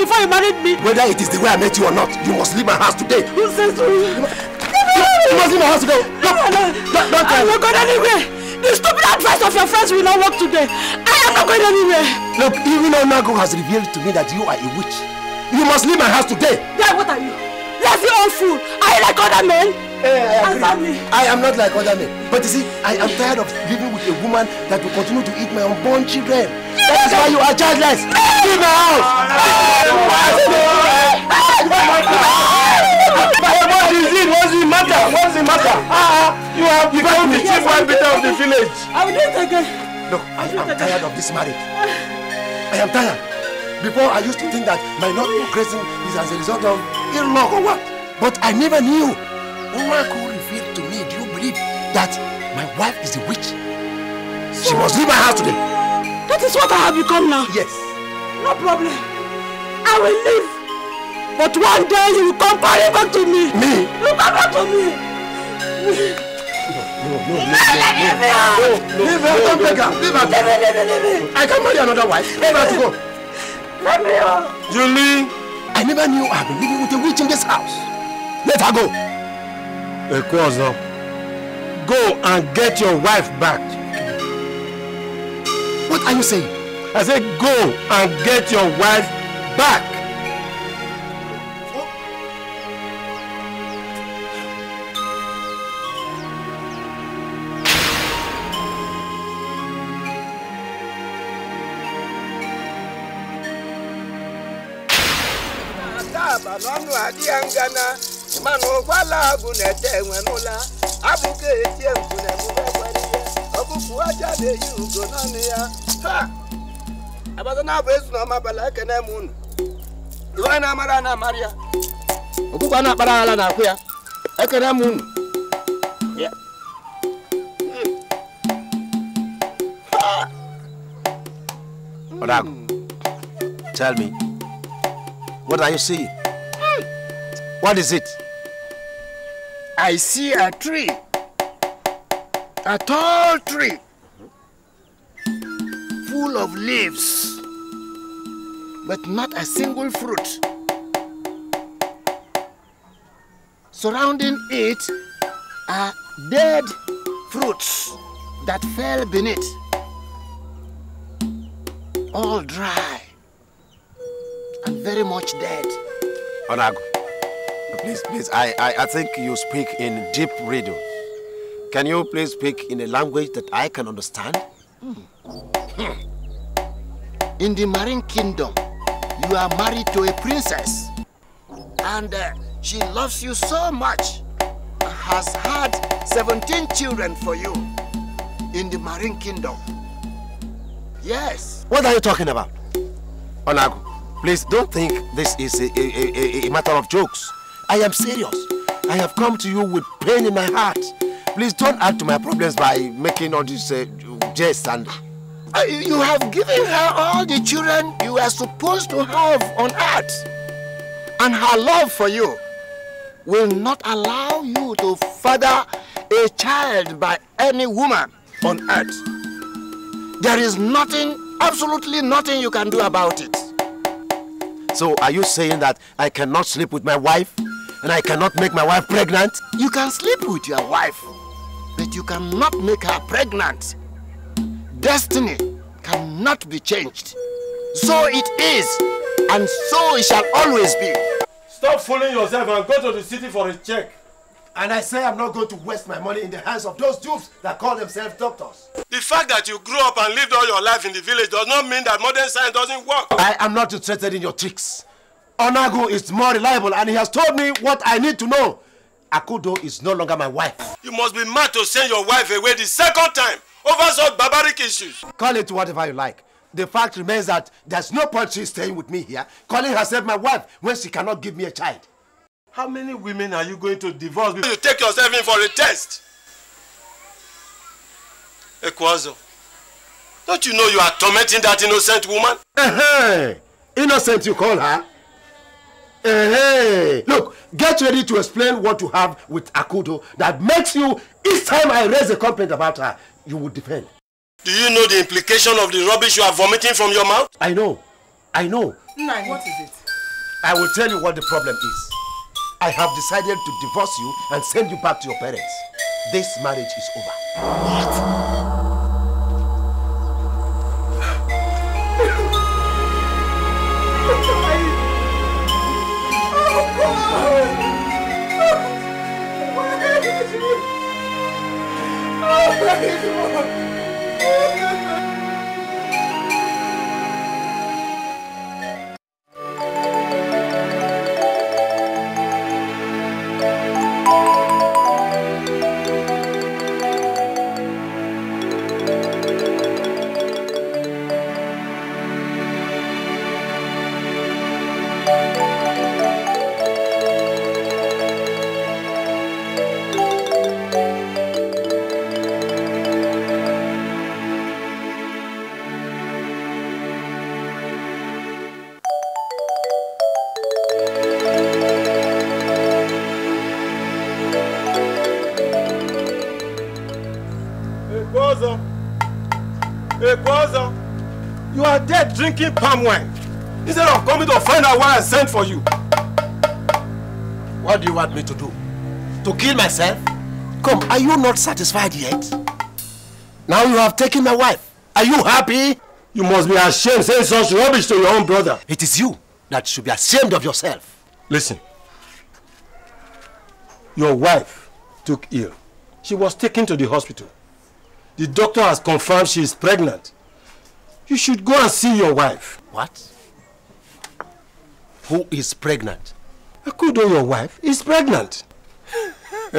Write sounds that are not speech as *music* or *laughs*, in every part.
before you married me. Whether it is the way I met you or not, you must leave my house today. You say so. You, must leave my house today. No, no, no. Don't, don't tell me. I will go anywhere. The stupid advice of your friends will not work today. I am not going anywhere. Look, even Onago has revealed to me that you are a witch. You must leave my house today. Yeah, what are you? Lazy old fool. Are you like other men? Hey, eh, I, agree. I am not like other men. But you see, I am tired of living with a woman that will continue to eat my unborn children. That is why you are childless. Leave my house. What is it? What's the matter? What's the matter? Ah, ah, you have become the chief arbiter of the village. I will do it again. Look, I am tired of this marriage. I am tired. Before I used to think that my not progressing is as a result of ill luck or what, but I never knew. could revealed to me, do you believe that my wife is a witch? She must leave my house today. That is what I have become now. Yes. No problem. I will leave. But one day you will come crying back to me. Me? You come back to me. me. No, no, no, no, no, no, leave her, don't beg her, leave her, leave me, leave me, leave me. I can't marry another wife. Leave her to go. Let me go. Oh. Julie, I never knew I've been living with a witch in this house. Let her go. Ekozo, go and get your wife back. What are you saying? I said go and get your wife back. n'ọnụ adịghị ngana mana ụkwala agụ na-ete enwe n'ụla ọ aja na-eyi ugo naanị ya ha na abụ ezu na ọma abalị unu iwe na-amara na amara ya ọkụkọ ana na-akpara ala na-akwụ ya ekene m unu Orago, tell me, what are you seeing? Hmm. What is it? I see a tree. a tall tree full of leaves, but not a single fruit. Surrounding it are dead fruits that fell beneath, all dry and very much dead. Onago, please, please, I, I, I think you speak in deep riddle. Can you please speak in a language that I can understand? Hmm. In the Marine Kingdom, you are married to a princess. And uh, she loves you so much, has had 17 children for you in the Marine Kingdom. Yes. What are you talking about? Onago, please don't think this is a, a, a, a matter of jokes. I am serious. I have come to you with pain in my heart. Please don't add to my problems by making all this. uh, and... Uh, you have given her all the children you were supposed to have on earth. And her love for you will not allow you to father a child by any woman on earth. There is nothing, absolutely nothing you can do about it. So are you saying that I cannot sleep with my wife? And I cannot make my wife pregnant? You can sleep with your wife that you cannot make her pregnant. Destiny cannot be changed. So it is, and so it shall always be. Stop fooling yourself and go to the city for a check. And I say I'm not going to waste my money in the hands of those dupes that call themselves doctors. The fact that you grew up and lived all your life in the village does not mean that modern science doesn't work. I am not interested in your tricks. Onago is more reliable and he has told me what I need to know. Akudo is no longer my wife. You must be mad to send your wife away the second time over such barbaric issues. Call it whatever you like. The fact remains that there's no point she's staying with me here, calling herself my wife when she cannot give me a child. How many women are you going to divorce before you take yourself in for a test? Ekwazo, don't you know you are tormenting that innocent woman? Uh -huh. Innocent you call her? Uh-huh. Look, get ready to explain what you have with Akudo that makes you, each time I raise a complaint about her, you would defend. Do you know the implication of the rubbish you are vomiting from your mouth? I know. I know. Nai, what is it? I will tell you what the problem is. I have decided to divorce you and send you back to your parents. This marriage is over. What? praise. drinking palm wine instead of oh, coming to find out why I sent for you. What do you want me to do? To kill myself? Come, are you not satisfied yet? Now you have taken my wife. Are you happy? You must be ashamed saying such rubbish to your own brother. It is you that should be ashamed of yourself. Listen. Your wife took ill. She was taken to the hospital. The doctor has confirmed she is pregnant. You should go and see your wife. What? Who is pregnant? Akudo, your wife, is pregnant. *laughs*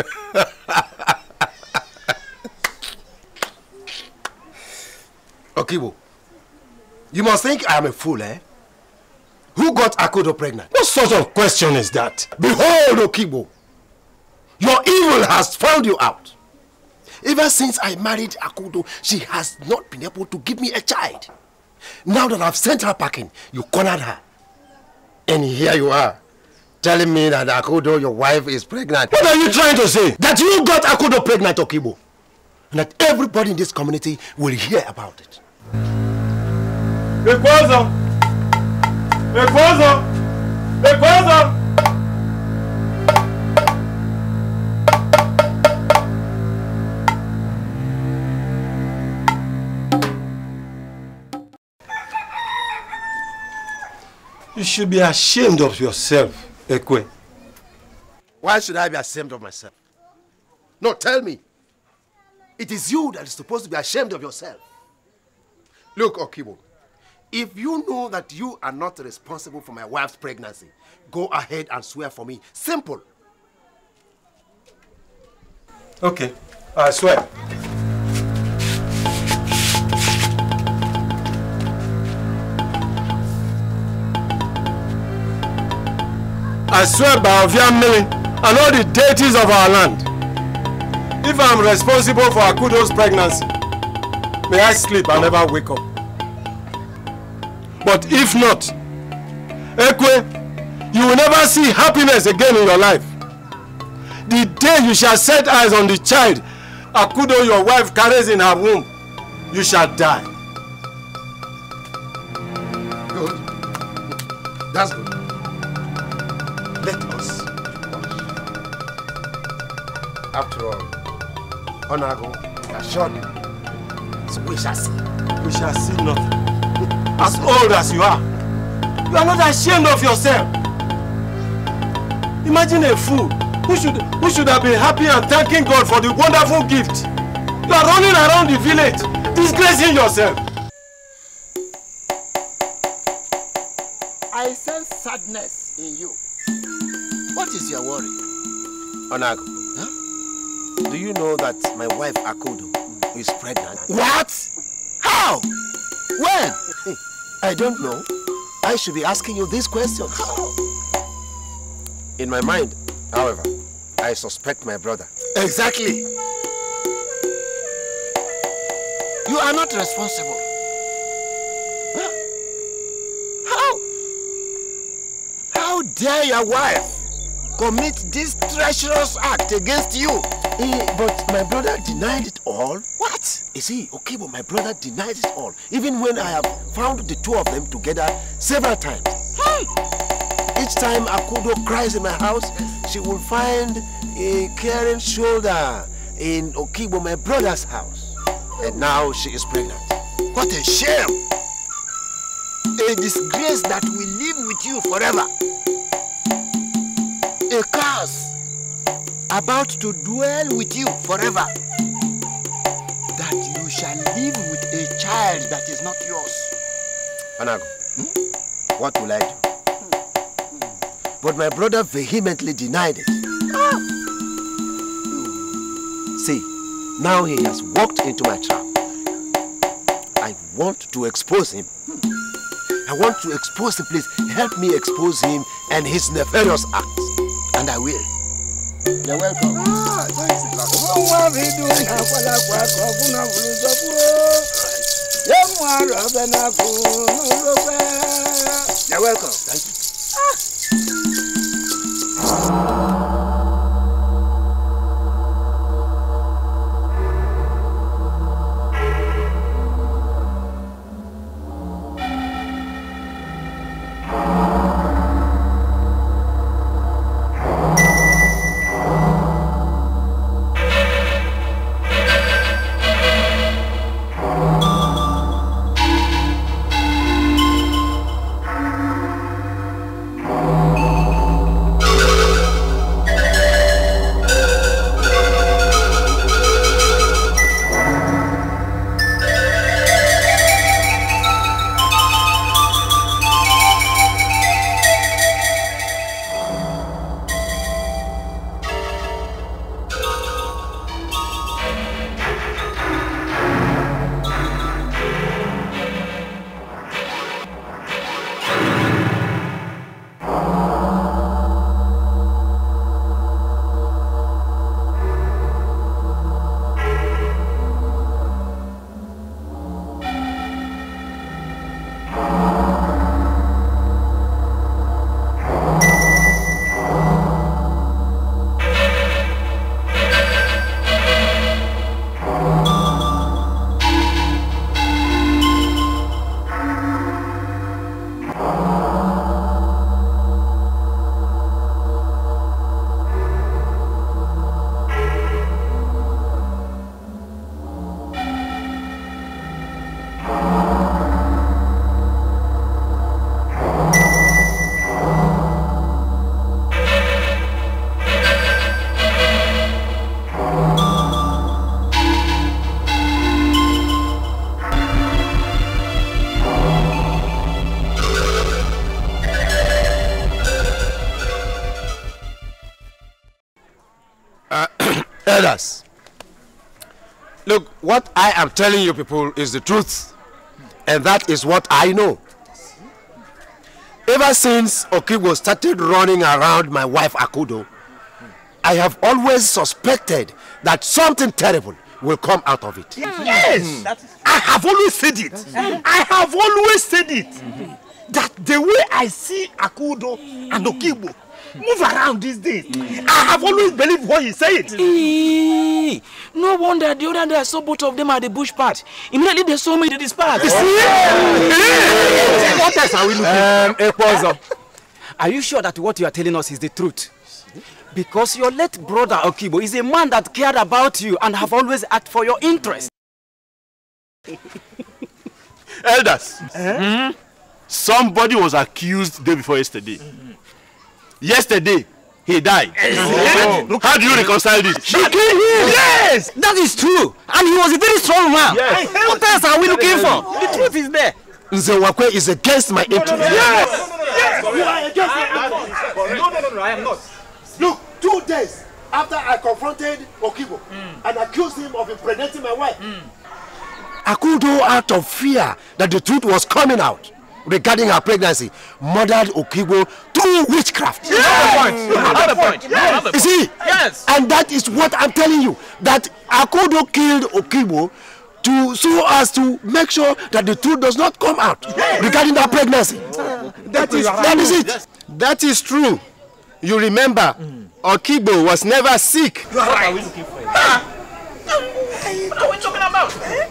Okibo, you must think I am a fool, eh? Who got Akudo pregnant? What sort of question is that? Behold, Okibo, your evil has found you out. Ever since I married Akudo, she has not been able to give me a child. Now that I've sent her packing, you cornered her. And here you are, telling me that Akudo, your wife, is pregnant. What are you trying to say? That you got Akudo pregnant, Okibo. And that everybody in this community will hear about it. Ekwazo! Ekwazo! Ekwazo! You should be ashamed of yourself, Ekwe. Why should I be ashamed of myself? No, tell me. It is you that is supposed to be ashamed of yourself. Look, Okibo, if you know that you are not responsible for my wife's pregnancy, go ahead and swear for me. Simple. Okay, I swear. I swear by Oviamili and all the deities of our land. If I'm responsible for Akudo's pregnancy, may I sleep and never wake up. But if not, Ekwe, you will never see happiness again in your life. The day you shall set eyes on the child Akudo your wife carries in her womb, you shall die. Good. That's good. after all Honorable assured me so we shall see we shall see nothing *laughs* as old as you are you are not ashamed of yourself imagine a fool who should who should have been happy and thanking God for the wonderful gift you are running around the village disgracing yourself. I sense sadness in you. What is your worry? Onago, Do you know that my wife Akodo is pregnant? What? How? When? *laughs* I don't know. I should be asking you this question. How? In my mind, however, I suspect my brother. Exactly. You are not responsible. How? How dare your wife commit this treacherous act against you. but my brother denied it all. What? Is he? okay, but my brother denied it all. Even when I have found the two of them together several times. Hey! Each time Akudo cries in my house, she will find a caring shoulder in Okibo, my brother's house. And now she is pregnant. What a shame! A disgrace that will live with you forever a curse about to dwell with you forever. That you shall live with a child that is not yours. Anago, hmm? what will I do? Hmm. But my brother vehemently denied it. Ah. See, now he has walked into my trap. I want to expose him. I want to expose him. Please help me expose him and his nefarious acts. and I will. You're welcome. Ah, You're welcome. Thank you. others. Look, what I am telling you people is the truth. And that is what I know. Ever since Okibo started running around my wife Akudo, I have always suspected that something terrible will come out of it. Hmm. Yes! Hmm. I have always said it. Hmm. I have always said it. That the way I see Akudo and Okibo. Move around these days. Mm. I have always believed what he said. no wonder the other day I saw both of them at the bush part. Immediately they saw me, they dispersed. You see? What else are we looking um, Ekwazo, are you sure that what you are telling us is the truth? Because your late brother Okibo is a man that cared about you and have always acted for your interest. Elders, eh? somebody was accused day before yesterday. Mm -hmm. yesterday he died. Yes. Oh. How do you reconcile this? She killed him. Yes, that is true. And he was a very strong man. Yes. What else are we looking for? The truth is there. Nzewakwe is against my interest. Yes. Yes. You are against my No, no, no, no, I am not. Look, two days after I confronted Okibo mm. and accused him of impregnating my wife. Mm. Akudo out of fear that the truth was coming out regarding her pregnancy murdered Okigbo through witchcraft. Yes, Another point. Another point. Yes. You see? Yes. And that is what I'm telling you that Akodo killed Okigbo to so as to make sure that the truth does not come out yes. regarding that pregnancy. Oh, okay. That is that is it. Yes. That is true. You remember, mm. Okigbo was never sick. You are right. What are we looking for? What are we talking about? Eh?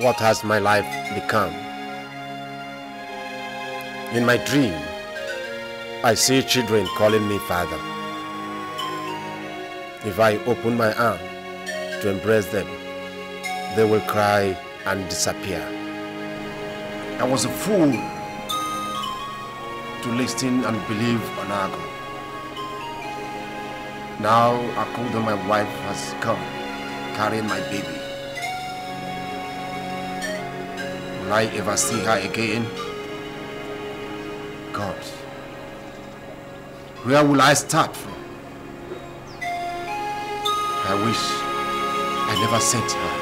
What has my life become? In my dream, I see children calling me father. If I open my arm to embrace them, they will cry and disappear. I was a fool to listen and believe Onago. Now Akuda, my wife, has come, carrying my baby. Will I ever see her again? God, where will I start from? I wish I never sent her.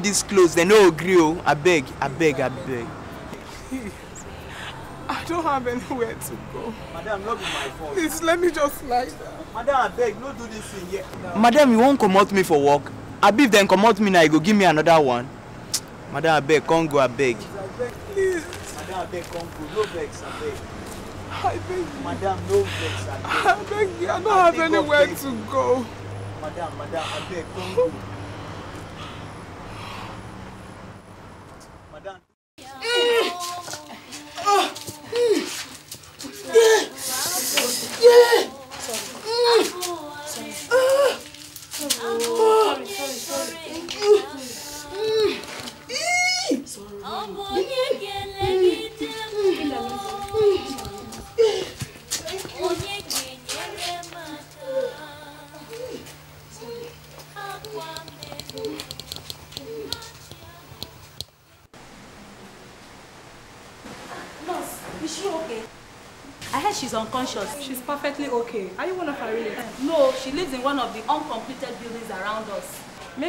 get dis clothes dem no gree o oh. abeg abeg abeg. *laughs* I don't have anywhere to go. Madam, not be my fault. Please, let me just lie down. Madam, beg, no do this thing yet. No. Madam, you won't come out me for work? Abi then come out me now, you go give me another one. *tsk* Madam, abeg, come go, abeg. Please. Madam, abeg, come go. No vex, abeg. I beg you. Madam, no vex, abeg. I beg you, I don't I have anywhere to go. Madam, madam, abeg, come go.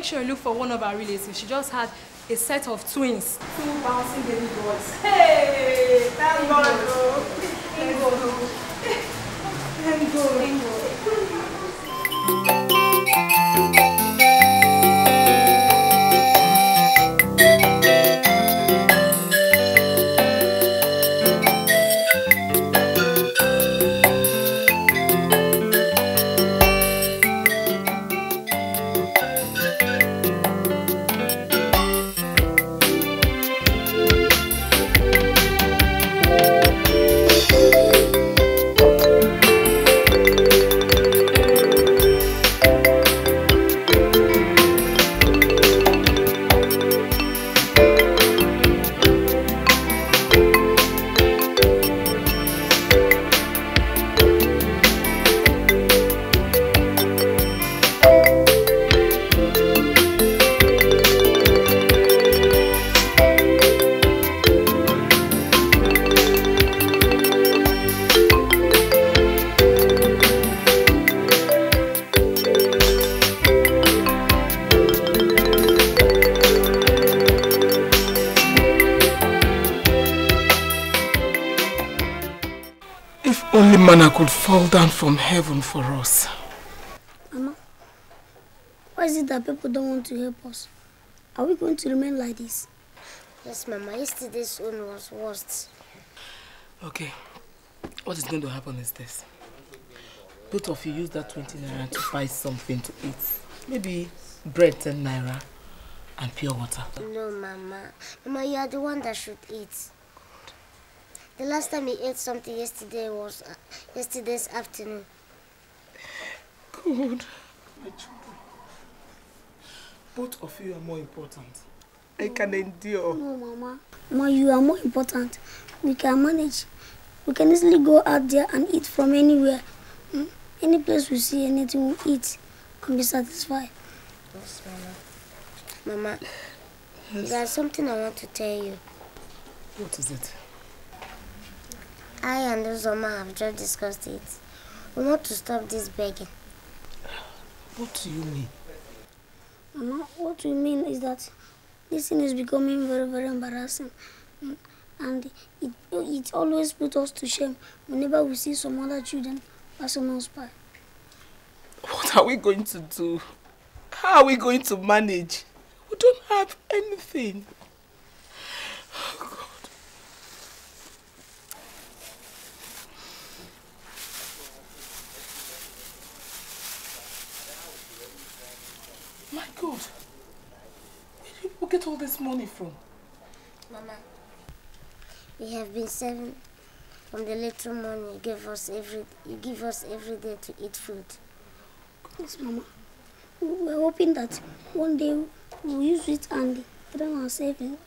make sure you look for one of our relatives. She just had a set of twins. Two bouncing baby boys. Hey! Thank God! Thank God! Thank God! Thank God! heaven for us. Mama, why is it that people don't want to help us? Are we going to remain like this? Yes, Mama. Yesterday's one was worst. Okay. What is going to happen is this. Both of you use that 20 naira to buy something to eat. Maybe bread 10 naira and pure water. No, Mama. Mama, you are the one that should eat. The last time he ate something yesterday was uh, yesterday's afternoon. My children, both of you are more important. I can endure. No, Mama. Ma, you are more important. We can manage. We can easily go out there and eat from anywhere. Hmm? Any place we see, anything we we'll eat and be satisfied. Yes, Mama. Mama, yes. there's something I want to tell you. What is it? I and Uzoma have just discussed it. We want to stop this begging. What do you mean? Mama, what we mean is that this thing is becoming very, very embarrassing. And it, it always puts us to shame whenever we see some other children passing us by. What are we going to do? How are we going to manage? We don't have anything. Oh, get all this money from? Mama, we have been saving from the little money you give us every you give us every day to eat food. Yes, Mama. We're hoping that one day we'll use it and train ourselves in,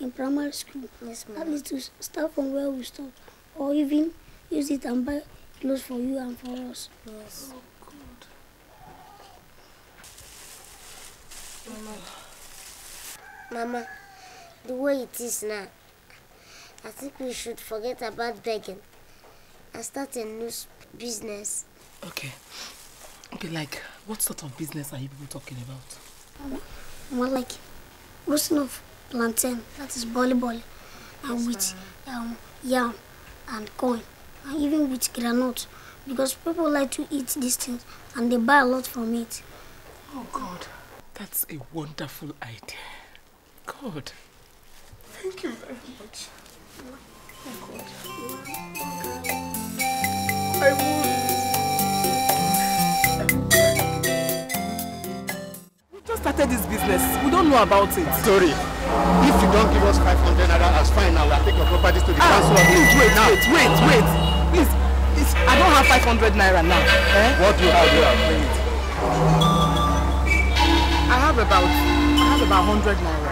in primary school. Yes, Mama. At least to start from where we stop, or even use it and buy clothes for you and for us. Yes. Oh, good. Mama. Mama, the way it is now, I think we should forget about begging and start a new business. Okay. Okay, like, what sort of business are you people talking about? Mama, more like roasting of plantain, that is bolly bolly, and with um, yam and corn, and even with granite, because people like to eat these things and they buy a lot from it. Oh, God. That's a wonderful idea. God. Thank you very much. Oh God. I will. We just started this business. We don't know about it. Sorry. If you don't give us 500 naira as fine, Now I will take your properties to the ah, council. Please wait, now. wait, wait, wait. Please, please, I don't have 500 naira now. Eh? What do you have? You have I have about, I have about 100 naira.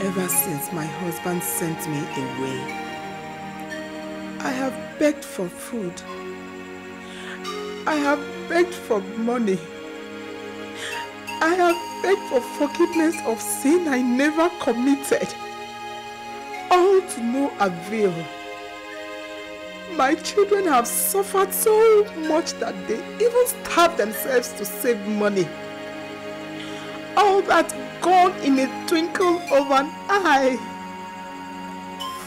ever since my husband sent me away. I have begged for food. I have begged for money. I have begged for forgiveness of sin I never committed. All to no avail. My children have suffered so much that they even starve themselves to save money. All that gone in a twinkle of an eye.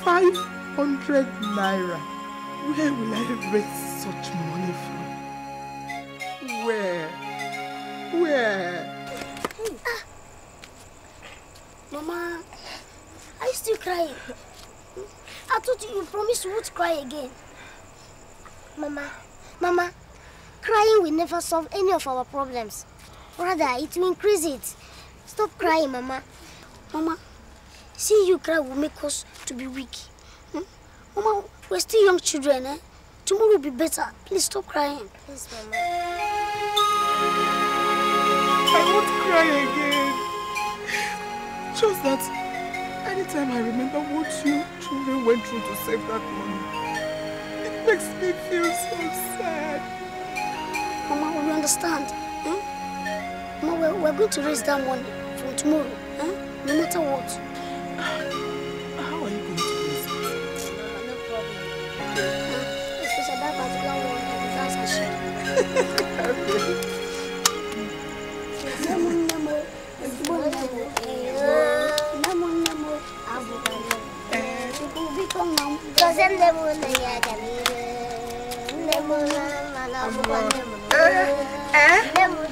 500 naira. Where will I raise such money from? Where? Where? Ah. Mama, are you still crying? I told you you promised you would cry again. Mama, Mama, crying will never solve any of our problems. Rather, it will increase it. Stop crying, Mama. Mama, seeing you cry will make us to be weak. Hmm? Mama, we're still young children, eh? Tomorrow will be better. Please stop crying. Please, Mama. I won't cry again. Just that anytime I remember what you children went through to save that money, it makes me feel so sad. Mama, will you understand? Hmm? Mama, we're, we're going to raise that money. tomorrow, eh? no matter what. How are you going to do this? No problem. Uh, especially that particular one, that's a shame. Eh?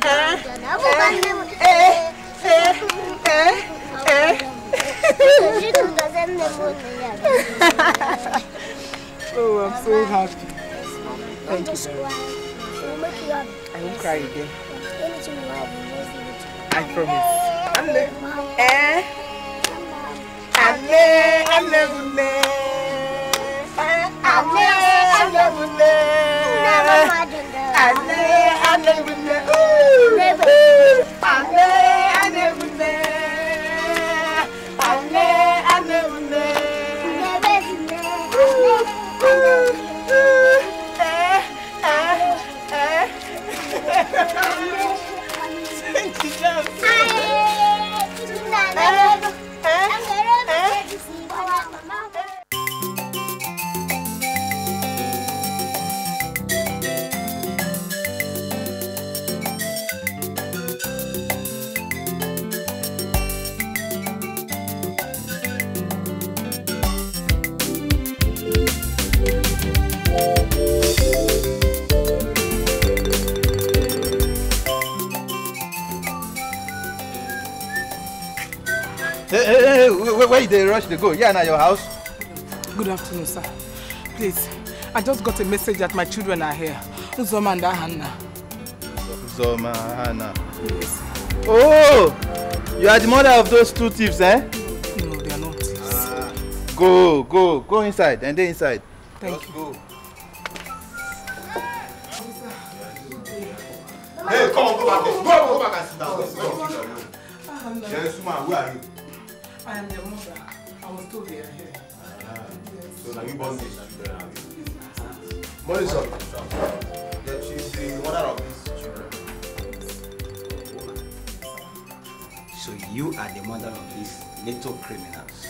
Eh? Eh? Eh? oh, I'm so happy. Thank you so I won't cry again. I promise. I'm there. Eh? I'm there. I'm there. I'm there. I'm there. I'm there. I'm there and every man. you dey rush to go? Yeah, now, your house? Good afternoon, sir. Please, I just got a message that my children are here. Uzoma and Hannah. Uzoma, Hannah. Yes. Oh! You are the mother of those two thieves, eh? No, they are not Ah. Go, go, go inside. And they inside. Thank just you. go. Hey, come on, go back there. Go, go back and sit down. Yes, ma'am, where are you? I am the mother. I was told they are here. So now you born this children. Money son. That she's the mother of these children. So you are the mother of these little criminals.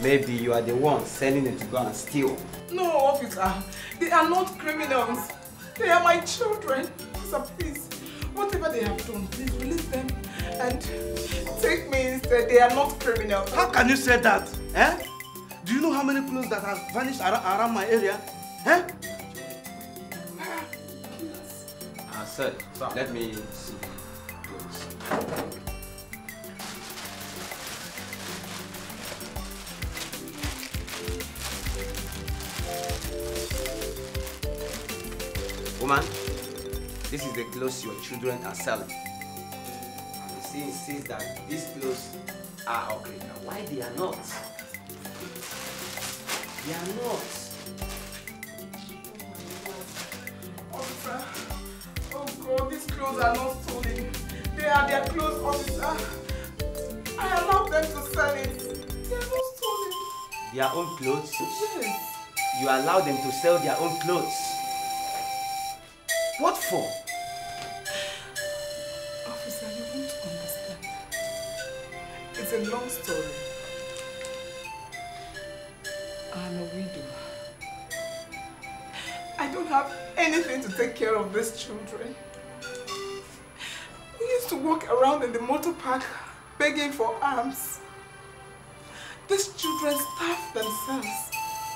Maybe you are the one sending them to go and steal. No, officer. They are not criminals. They are my children. Sir, please, whatever they have done, please release them and take me instead. They are not criminals. How can you say that? Eh? Do you know how many clothes that have vanished around, around my area? Eh? Uh, sir, sir, let me see. Please. Woman, this is the clothes your children are selling. see insists that these clothes are okay. Now, why they are not? They are not. Officer, oh God, these clothes are not stolen. They are their clothes, officer. I allowed them to sell it. They are not stolen. Their own clothes? Yes. You allow them to sell their own clothes? What for? a long story. I'm a widow. I don't have anything to take care of these children. We used to walk around in the motor park begging for alms. These children starved themselves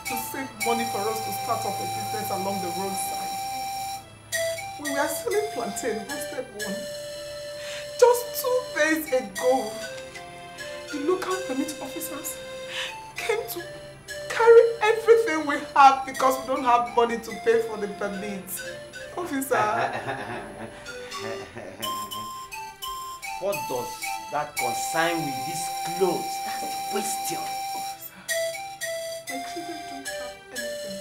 to save money for us to start up a business along the roadside. We were selling plantain, roasted one, just two days ago the local permit officers came to carry everything we have because we don't have money to pay for the permit. Officer. *laughs* what does that concern with these clothes? That's the question. Officer, my children don't have anything.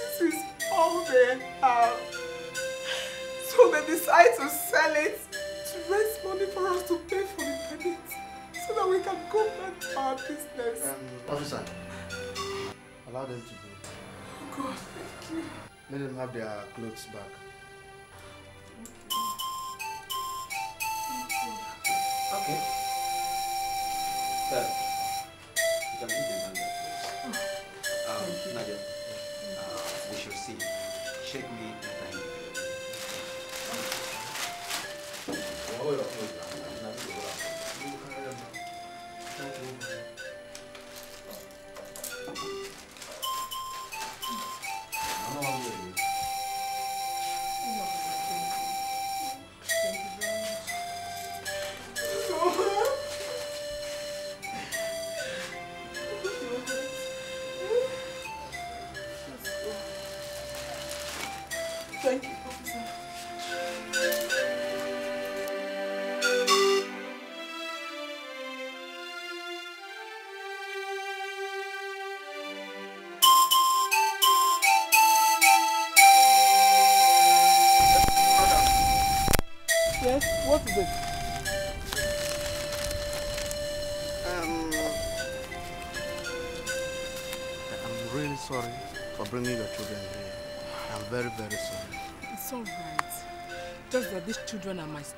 This is all they have. So they decide to sell it to raise money for us to pay for the permit so that we can go back to our business. Um, officer, allow them to go. Oh God, thank you. Let them have their clothes back. Okay. Sir, you can leave them on that Um, Nadia, uh, we shall see. Shake me.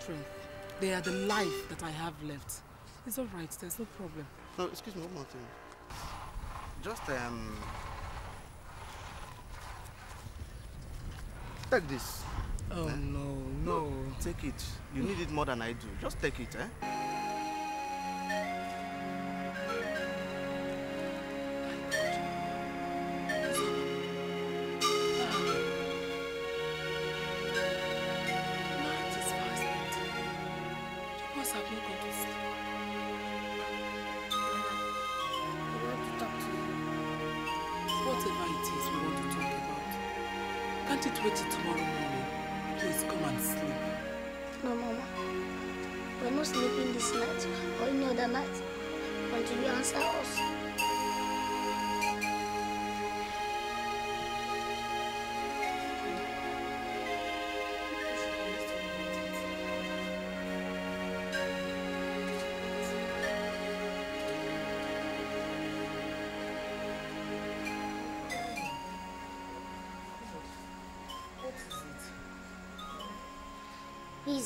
strength. They are the life that I have left. It's all right, there's no problem. No, excuse me, one more thing. Just, um... Take this. Oh, eh? no, no. no. Take it. You need it more than I do. Just take it, eh?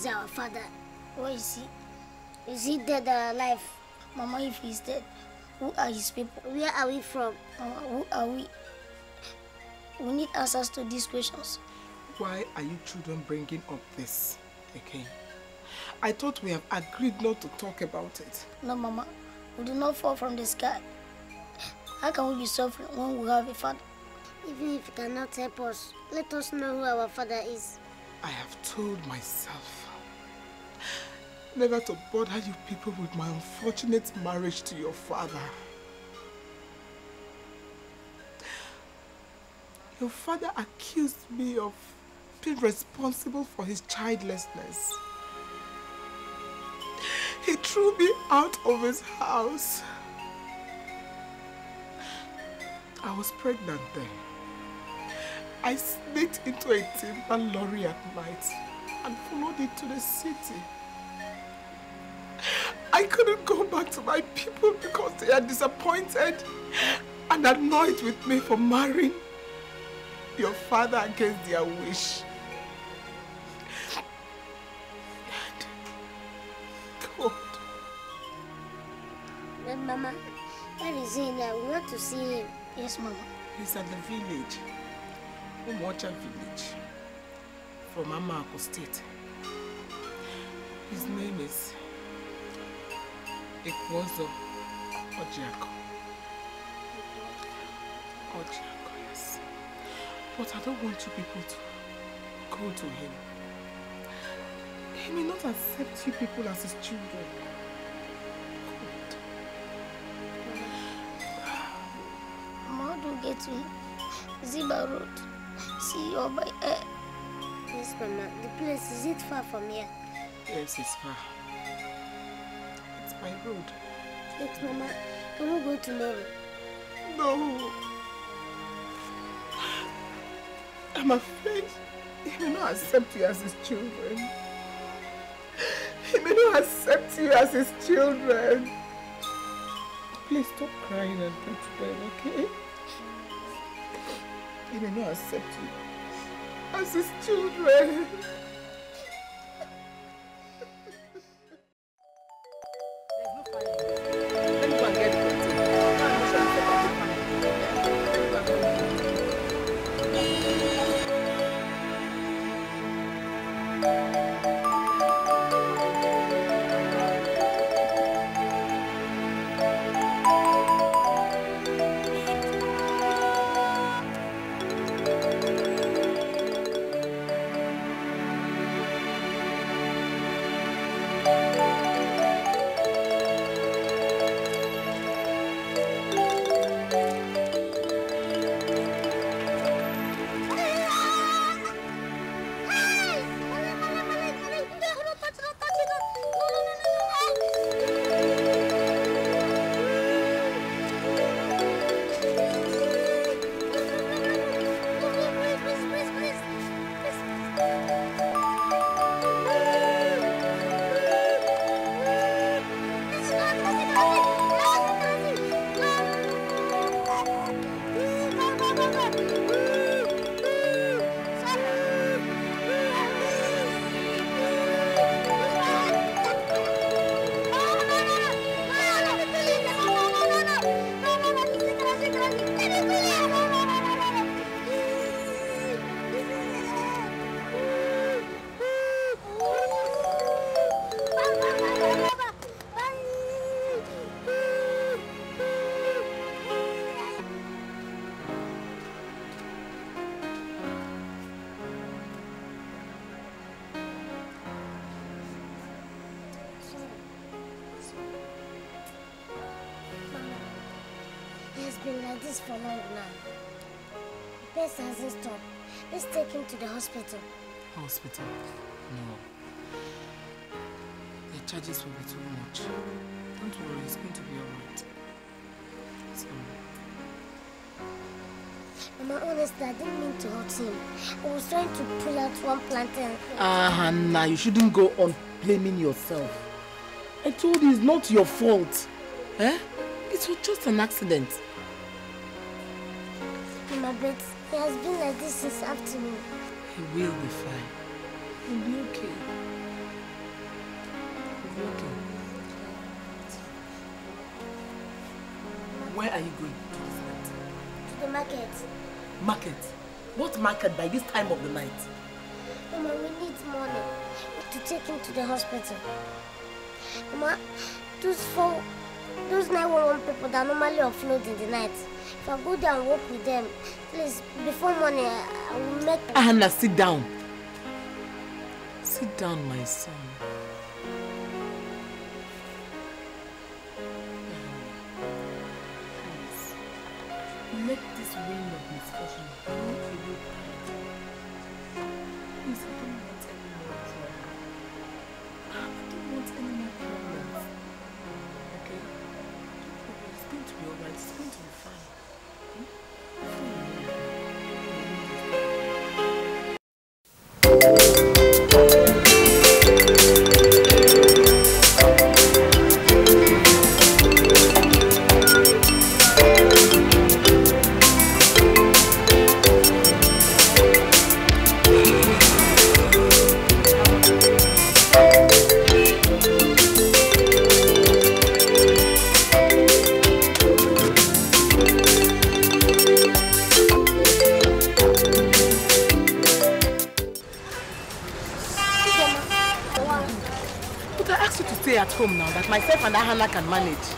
is our father. Where is he? Is he dead or alive? Mama, if he's dead, who are his people? Where are we from? Mama, who are we? We need answers to these questions. Why are you children bringing up this again? I thought we have agreed not to talk about it. No, Mama. We do not fall from the sky. How can we be suffering when we have a father? Even if he cannot help us, let us know who our father is. I have told myself never to bother you people with my unfortunate marriage to your father. Your father accused me of being responsible for his childlessness. He threw me out of his house. I was pregnant then. I sneaked into a timber lorry at night and followed it to the city. I couldn't go back to my people because they are disappointed and annoyed with me for marrying your father against their wish. And God. But Mama, where is he now? We want to see him. Yes, Mama. He's at the village. Umocha village. From Amako state. His name is ekwu ọzọ ọjịakọ ọjịakọ yes but i don't want you people to go to him he may not accept you people as his children God mama don't get to ziba road see your by air yes mama the place is it far from here yes it's far my road. Yes, Mama. Can we go tomorrow? No. I'm afraid he may not accept you as his children. He may not accept you as his children. Please stop crying and pray to God, okay? He may not accept you as his children. him to the hospital. Hospital? No. The charges will be too much. Don't worry, it's going to be alright. Sorry. Mama, honestly, I didn't mean to hurt him. I was trying to pull out one plantain. Ah, uh, nah, you shouldn't go on blaming yourself. I told you it's not your fault. Eh? It was just an accident. like this this afternoon. He will be fine. He'll be okay. He'll be okay. Where are you going to the market. Market? What market by this time of the night? Mama, we need money to take him to the hospital. Mama, those four, those 911 people that normally offload in the night, If go there and work with them, please, before morning, I will make... Anna, sit down. Sit down, my son. Please, make this wind of misfortune planet.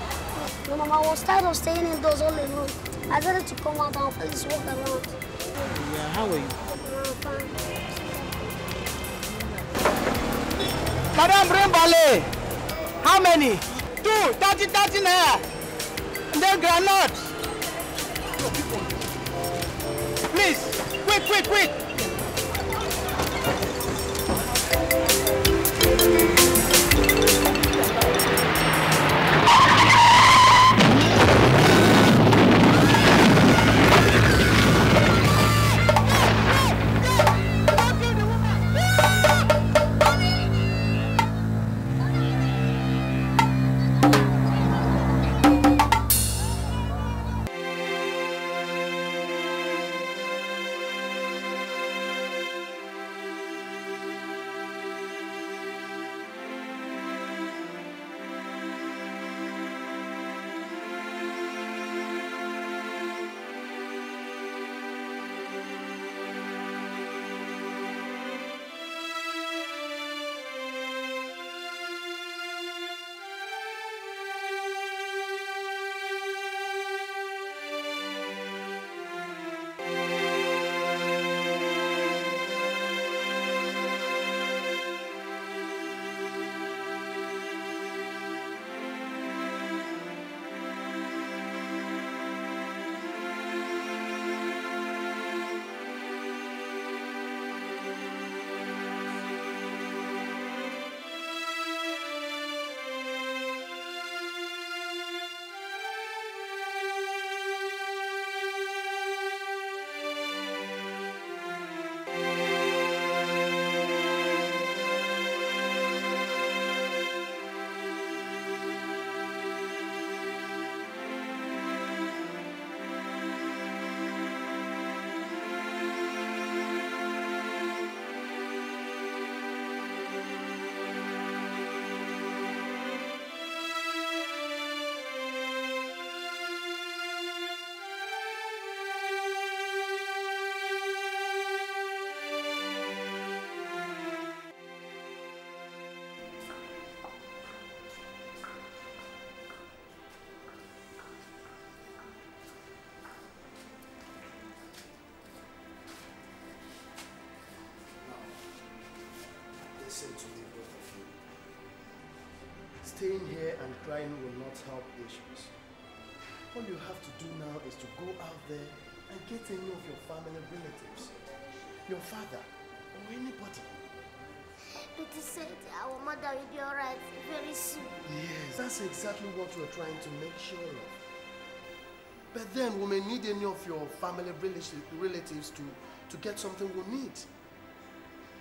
staying here and crying will not help issues. All you have to do now is to go out there and get any of your family relatives, your father, or anybody. Betty said our mother will be alright very soon. Yes, that's exactly what we're trying to make sure of. But then we may need any of your family relatives to, to get something we need.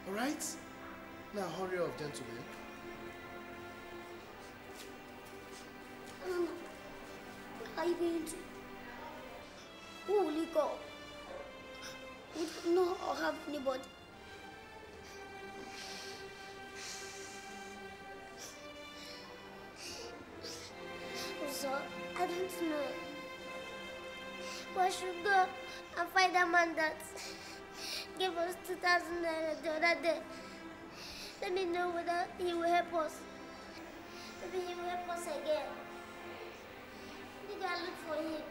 Alright? Now hurry up, gentlemen. bridge. Holy cow. We don't have anybody. So, I don't know. We should go and find a man that gave us 2,000 the other day? Let me know whether he will help us. Maybe he will help us again girl look for him.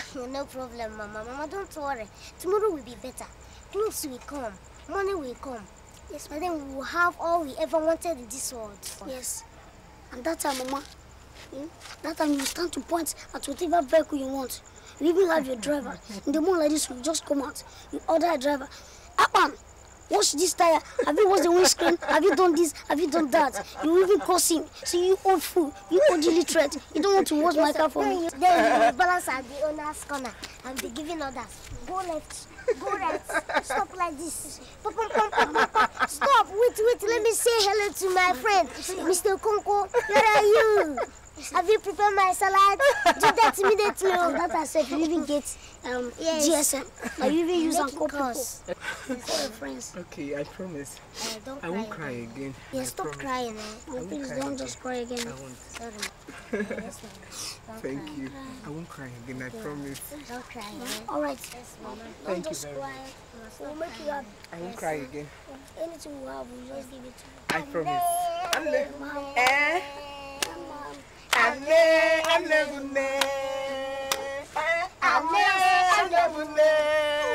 *laughs* no problem, Mama. Mama, don't worry. Tomorrow will be better. Clothes will come. Money will come. Yes, but then we will have all we ever wanted in this world. Yes. And that time, Mama, hmm? that time you stand to point at whatever vehicle you want. You even have your driver. *laughs* In the morning like this, you just come out. You order a driver. Up on! Wash this tire. Have you washed the windscreen? Have you done this? Have you done that? You even curse him. So you old fool. You old illiterate. You don't want to wash my car for me. Then you balance at the owner's corner and be giving orders. Go left. Go right. Stop like this. Pum, pum, pum, pum, pum. Stop. Wait, wait. Let me say hello to my friend, Mr. Konko. Where are you? *laughs* Have you prepared my salad? *laughs* Do that immediately. And oh, that I said, you even get um, yes. GSM. Are you even using Uncle Pause. friends. Okay, I promise. Uh, don't I won't cry again. Yeah, I stop promise. crying. Eh? No, please don't just cry again. I won't. Sorry. *laughs* Thank you. I won't cry again, I promise. Don't cry again. Eh? Alright. Yes, Thank don't you very cry. We'll make you happy. I won't cry again. Anything we have, we'll just give it to you. I promise. Eh? Anne, anne bunne. Anne, anne bunne.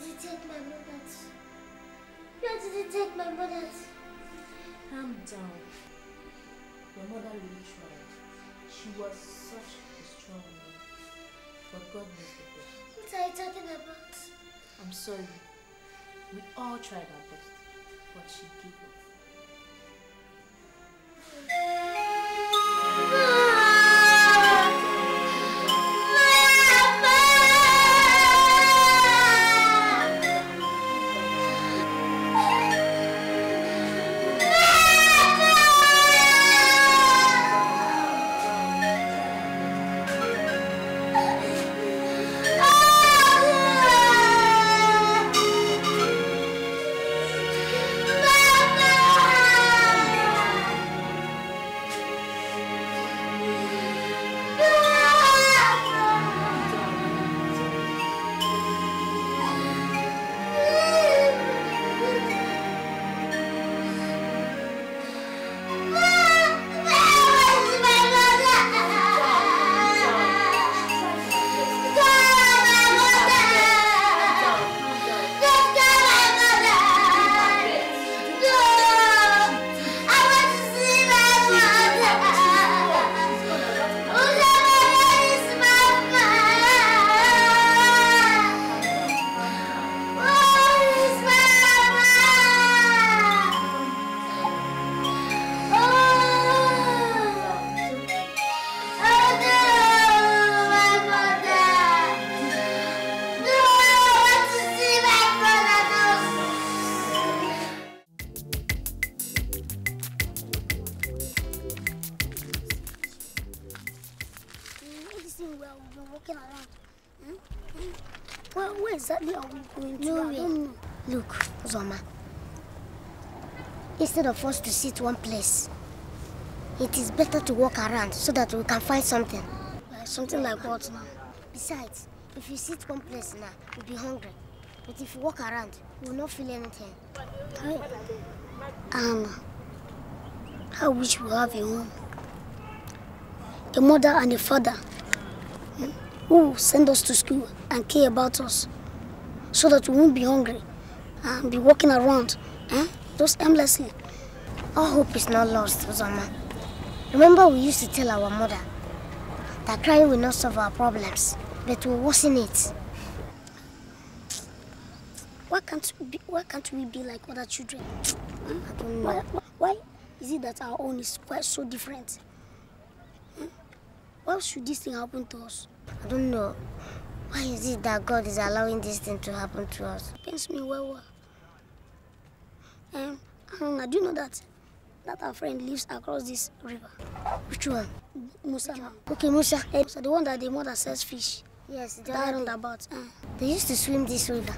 did you take my wallet? Where did you take my wallet? Calm down. Your mother really tried. She was such a strong woman. But God knows the best. What are you talking about? I'm sorry. We all tried our best, but she gave up. forced to sit one place. It is better to walk around so that we can find something. Uh, something like what now? Besides, if you sit one place now, you'll be hungry. But if you walk around, you will not feel anything. i Um, I wish we have a home. A mother and a father hmm, who send us to school and care about us so that we won't be hungry and be walking around eh? just aimlessly. All hope is not lost, Uzoma. Remember we used to tell our mother that crying will not solve our problems, but will worsen it. Why can't we be, why can't we be like other children? Hmm? I don't know. Why, why is it that our own is quite so different? Hmm? Why should this thing happen to us? I don't know. Why is it that God is allowing this thing to happen to us? It pains me well, well. Um, I do you know that that our friend lives across this river. Which one? Musa. Which one? Okay, Musa. Hey, eh, Musa, the one that the mother sells fish. Yes, the that roundabout. Uh. They used to swim this river.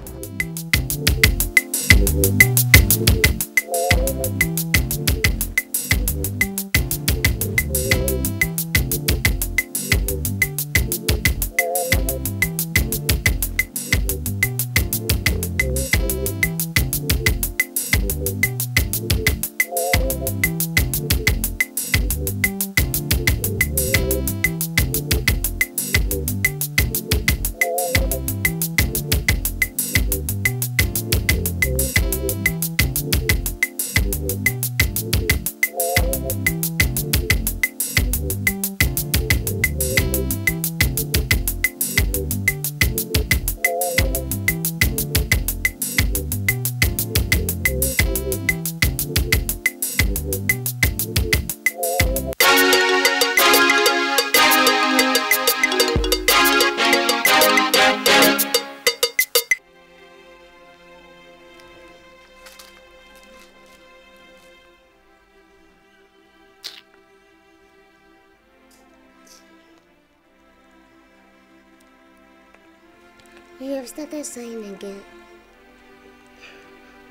started sighing again.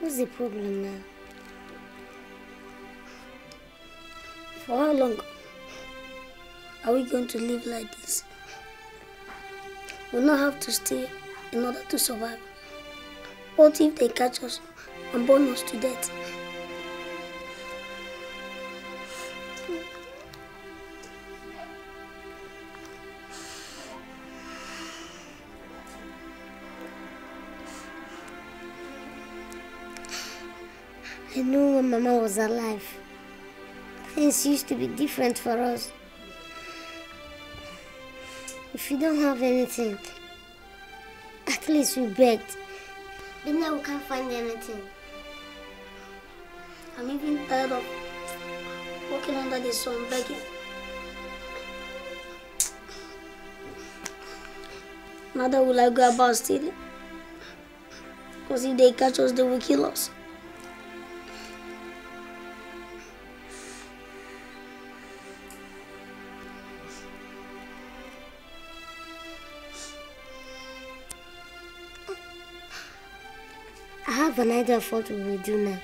What's the problem now? For how long are we going to live like this? We we'll not have to stay in order to survive. What if they catch us and burn us to death? I knew when Mama was alive. Things used to be different for us. If we don't have anything, at least we begged. But now we can't find anything. I'm even tired of walking under the sun begging. Neither will I go about stealing. Because if they catch us, they will kill us. have an idea of what we will do now.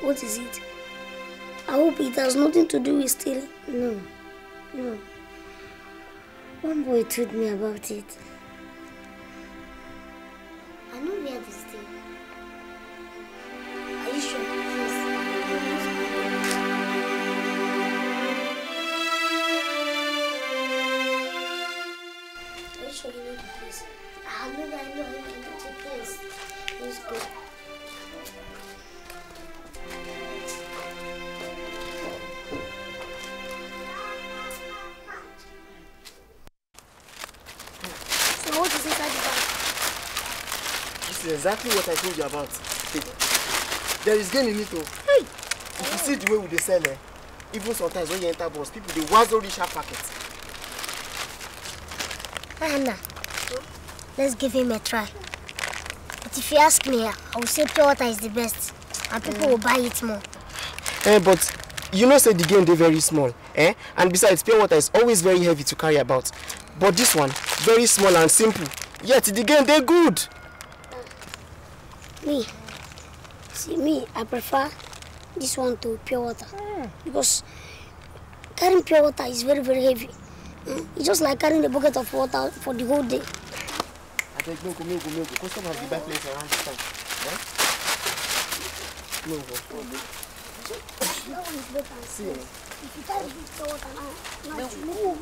What is it? I hope it has nothing to do with stealing. No, no. One boy told me about it. I know where this This is exactly what I told you about. There is gain in it though. Hey. If you see the way we sell eh, even sometimes when you enter bus, people they wazzo reach sharp packets. Anna, let's give him a try. But if you ask me, I will say pure water is the best and people mm. will buy it more. Eh, but you know say the game they're very small eh? and besides pure water is always very heavy to carry about but this one very small and simple yet the game they're good. me, see me, I prefer this one to pure water mm. because carrying pure water is very, very heavy. Mm? It's just like carrying a bucket of water for the whole day. I take milk, milk, milk. have the place around time. Right? Milk. That one is better. See. If you carry pure water now, now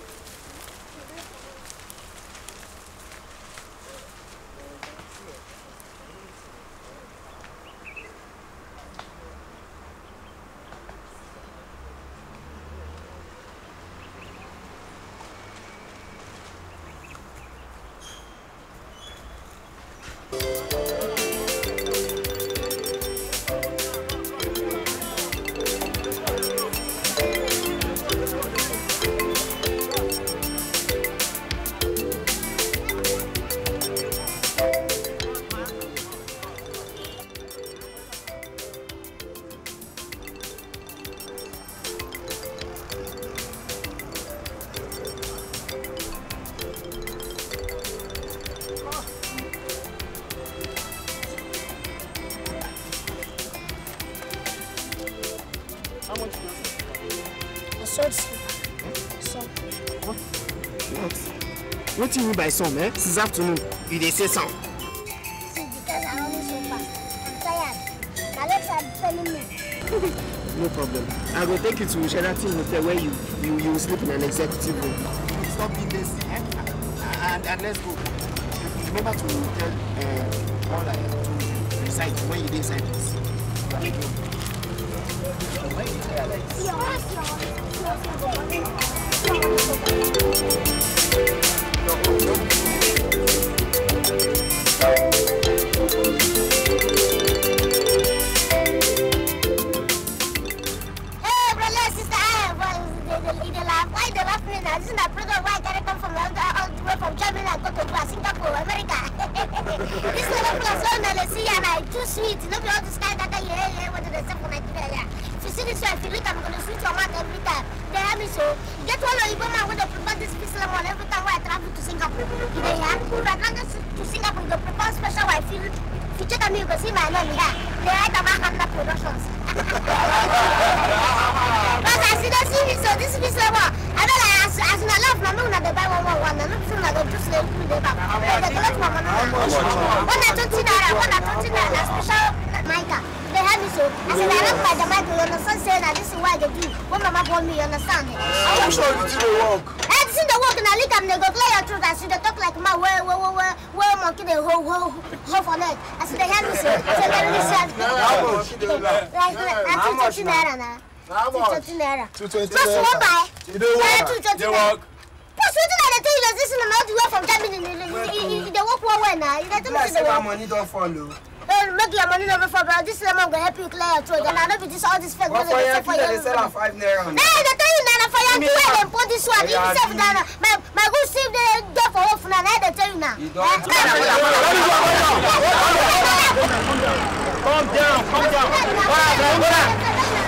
by some, eh? est afternoon, you say because so fast. I'm tired. no problem. I will take you to Sheraton Hotel where you, you, sleep in an executive room. Stop being this And, and let's go. Remember to tell eh, all I to when you decide naira. two twenty naira. Plus one buy. You dey work. Two twenty naira. Plus wetin I dey tell you na this na how the way from Germany you dey work well well na. You dey tell me say dey work. Be like say my money don fall o. Hey, make your money no be fall but this lemon go help you clear your throat and I no be this all this fake money dey sell for you. What dey five naira? Hey, I dey tell you na na for your two wey dem put this one if you sell na my my good still dey dey for off na na I dey tell you na. Come down, come down. Come down, come down.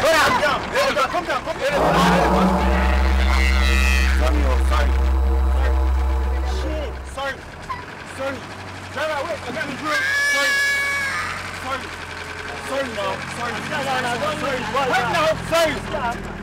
Get out! Come down, come down, come down. Samuel, sorry. Shit. Sorry. Sorry. Driver, wait, I got the drill. Sorry. Sorry. Sorry, no. Sorry. Sorry. Wait, no. Sorry.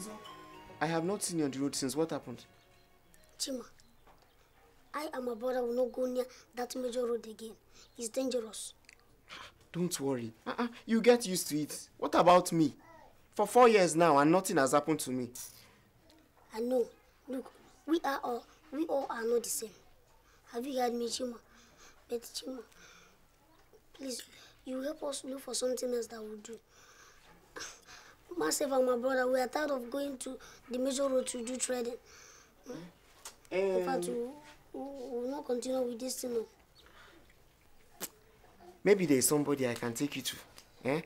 Hamza? I have not seen you on the road since. What happened? Chima, I and my brother will not go near that major road again. It's dangerous. Don't worry. Uh -uh, you get used to it. What about me? For four years now and nothing has happened to me. I know. Look, we are all, we all are not the same. Have you heard me, Chima? But Chima, please, you help us look for something else that will do. myself and my brother, we are tired of going to the major road to do trading. Mm? Um, In fact, um, we will not continue with this thing. Maybe there is somebody I can take you to. Eh?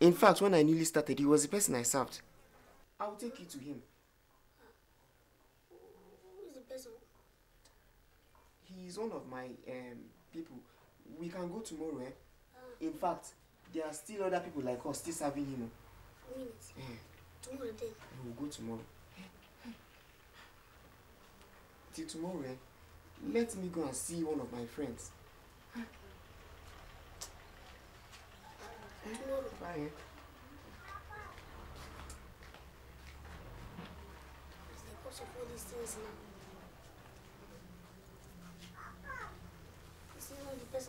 In fact, when I newly started, he was the person I served. I will take you to him. Who is the person? He is one of my um, people. We can go tomorrow, eh? Ah. In fact, there are still other people like us still serving him. Oh minutes. Mm. Tomorrow We will go tomorrow. Till tomorrow, eh? Let me go and see one of my friends. Eh? Tomorrow. Bye. Eh? person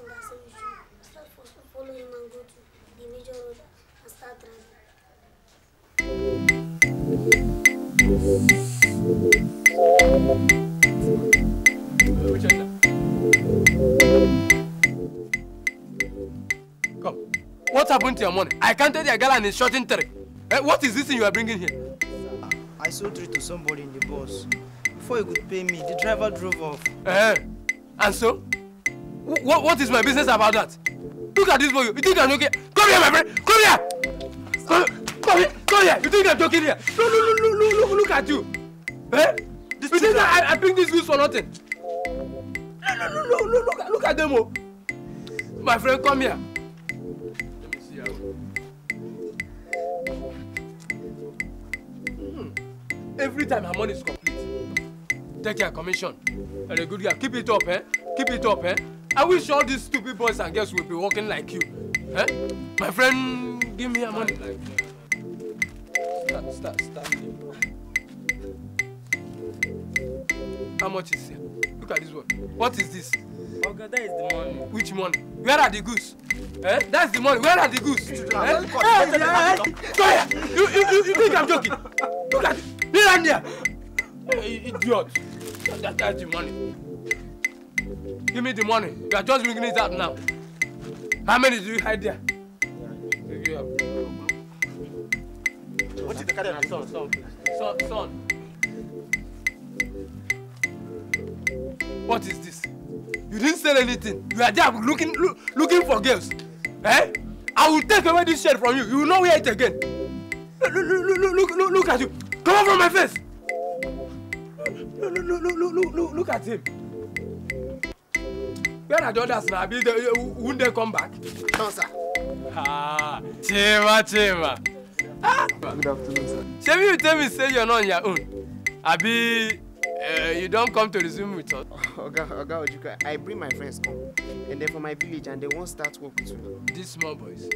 that said you should start and go to the major road and start driving. Come. What happened to your money? I counted your girl and it's shorting three. Eh, what is this thing you are bringing here? Ah, I sold three to somebody in the bus. Before he could pay me, the driver drove off. Eh? And so? What, what is my business about that? Look at this boy. You think I'm okay? Come here, my friend. Come here. Come here. Go here, come here. You think you're joking here? Look, look, look, look, look, look at you. Eh? This you think I, I bring these goods for nothing? Look, look, look, look, look, look at them. Oh. My friend, come here. Let me see how. Mm. Every time her money is complete, take your commission. And a good girl, keep it up, eh? Keep it up, eh? I wish all these stupid boys and girls would be walking like you. Eh? My friend, give me your money. Like, yeah. Start, start, start. How much is here? Look at this one. What is this? that is the money. Which money? Where are the goose? Eh? That's the money. Where are the goose? eh? eh? You, you, you, you think I'm joking? Look at it. Here idiot. That, that's the money. Give me the money. You are just bringing it up now. How many do you hide there? Yeah, What is the carry Son, son, son, What is this? You didn't sell anything. You are there looking look, looking for girls. Eh? I will take away this shirt from you. You will not wear it again. Look, look, look, look, look, look at you. Come out from my face. Look, look, look, look, look, look, look at him. Where are the others now? Uh, will they, they come back? No, sir. Ah, Chima, Chima. Good afternoon, sir. Shall you tell me say you're not on your own? Abi, uh, eh, you don't come to resume with us. Oga, Oga Ojuka, I bring my friends come, and they're from my village, and they won't start work with you. These small boys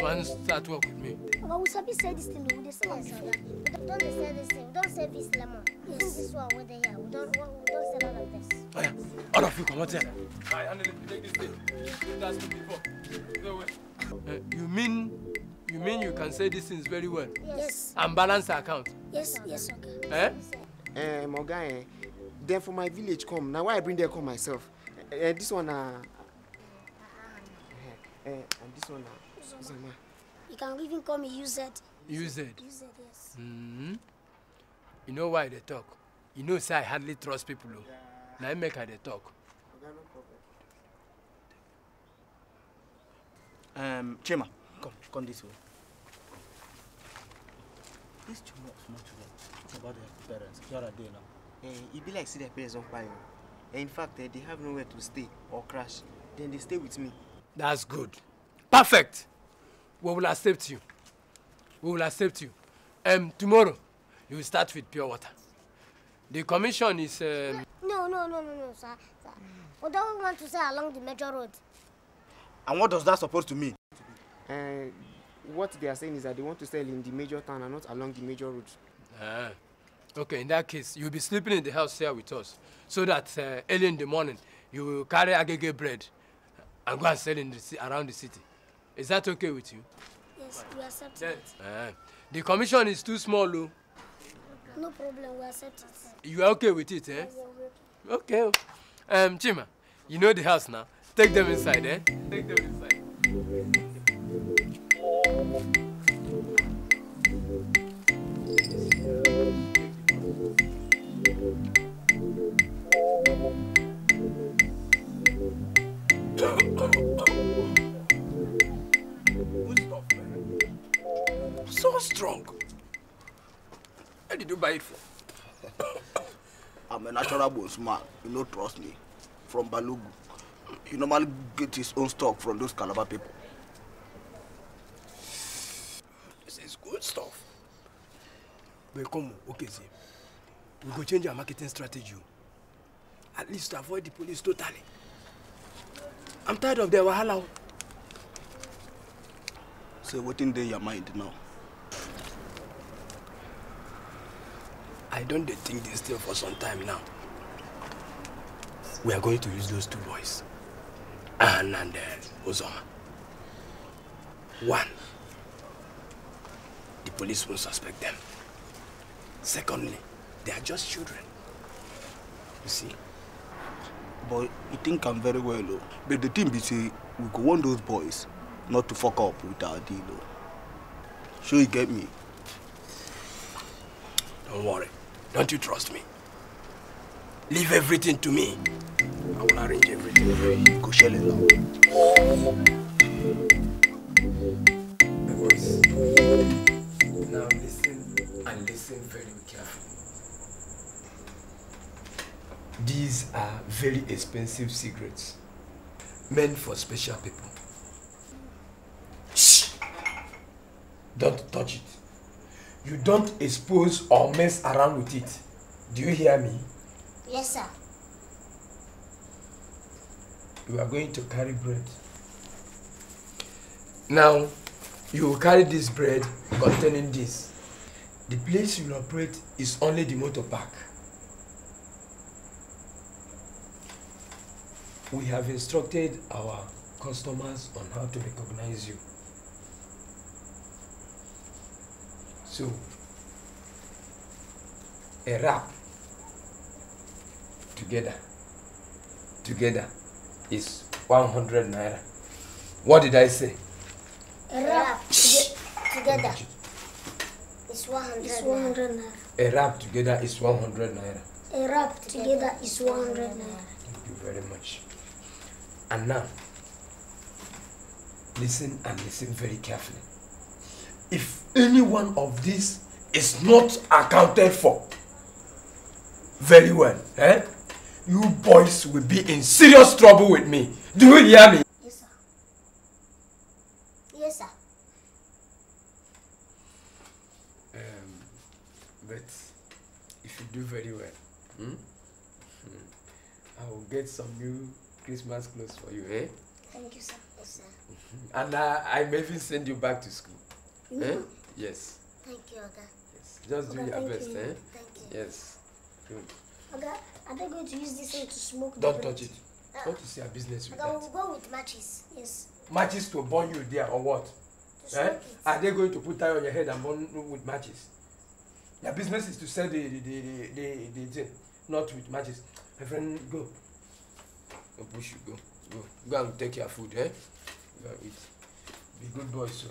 won't start work with me. Oga, we sabi say this thing, we dey this thing. Don't they sell this lemon. Yes. This is what we are here. We don't, we don't sell all of this. Oh yeah, all of you come out here. I handle Take this thing. That's me before. No way. Uh, eh, you mean You mean you can say these things very well? Yes. And balance the account? Yes, yes, okay. Eh? Eh, uh, Moga, eh, them from my village come. Now why I bring them come myself? Eh, uh, this one, uh, uh, uh, and this one, uh, ah. Zoma. Ah. You can even call me UZ. UZ? UZ, yes. Mm -hmm. You know why they talk? You know, say I hardly trust people. Oh. Yeah. Now I make her they talk. Um, Chima come this way. This children much small children. Talk about their parents. Where are they now? Eh, it e be like see their parents on fire. you. Eh, in fact, uh, they have nowhere to stay or crash. Then they stay with me. That's good. Perfect. We will accept you. We will accept you. Um, tomorrow, you will start with pure water. The commission is... Um... No, no, no, no, no, sir. sir. We don't want to say along the major road. And what does that supposed to mean? Uh, what they are saying is that they want to sell in the major town and not along the major road. Uh, ah, okay, in that case, you'll be sleeping in the house here with us so that uh, early in the morning you will carry agege bread and go and sell in the, around the city. Is that okay with you? Yes, we accept it. Uh, the commission is too small, though. No problem, we accept it. You are okay with it, eh? Okay. Oh. Um, Chima, you know the house now. Take them inside, eh? Take them inside. So strong. Where did you buy it for? I'm a natural bones man. You know, trust me. From Balugu. He normally get his own stock from those Calabar people. This is good stuff. But come okay, see we go change our marketing strategy at least to avoid the police totally i'm tired of their wahala. so wetin dey your mind now. i don't think this thing for some time now we are going to use those two boys Anne and uh, Ozoma. One, the police won't suspect them. Secondly, They are just children. You see? But you think I'm very well, though. But the thing be say, we go want those boys not to fuck up with our deal, though. Sure you get me? Don't worry. Don't you trust me? Leave everything to me. I will arrange everything. Go shell it now. Now listen and listen very carefully. These are very expensive cigarettes, meant for special people. Shh! Don't touch it. You don't expose or mess around with it. Do you hear me? Yes, sir. You are going to carry bread. Now, you will carry this bread containing this. The place you operate is only the motor park. we have instructed our customers on how to recognize you. So, a wrap together, together is 100 naira. What did I say? A wrap together is 100, naira. A wrap together is 100 naira. A wrap together is 100 naira. Thank you very much. And now, listen and listen very carefully. If any one of these is not accounted for very well, eh? You boys will be in serious trouble with me. Do you hear me? Yes, sir. Yes, sir. Um, but if you do very well, hmm? Hmm, I will get some new Christmas clothes for you, eh? Thank you, sir. Yes, sir. Mm-hmm. and uh, I may even send you back to school. No. Eh? Yes. Thank you, Oga. Yes. Just Oga, do your best, you. eh? Thank you. Yes. Oga, are they going to use this thing to smoke Don't touch it. Uh, Don't you see a business with Oga, that? Oga, we'll go with matches. Yes. Matches to burn you there or what? To eh? Are they going to put that on your head and burn with matches? Their business is to sell the the the the, the, the thing, not with matches. My friend, go. Go push you go. Go. Go and take your food, eh? Go and eat. Be good boy, So.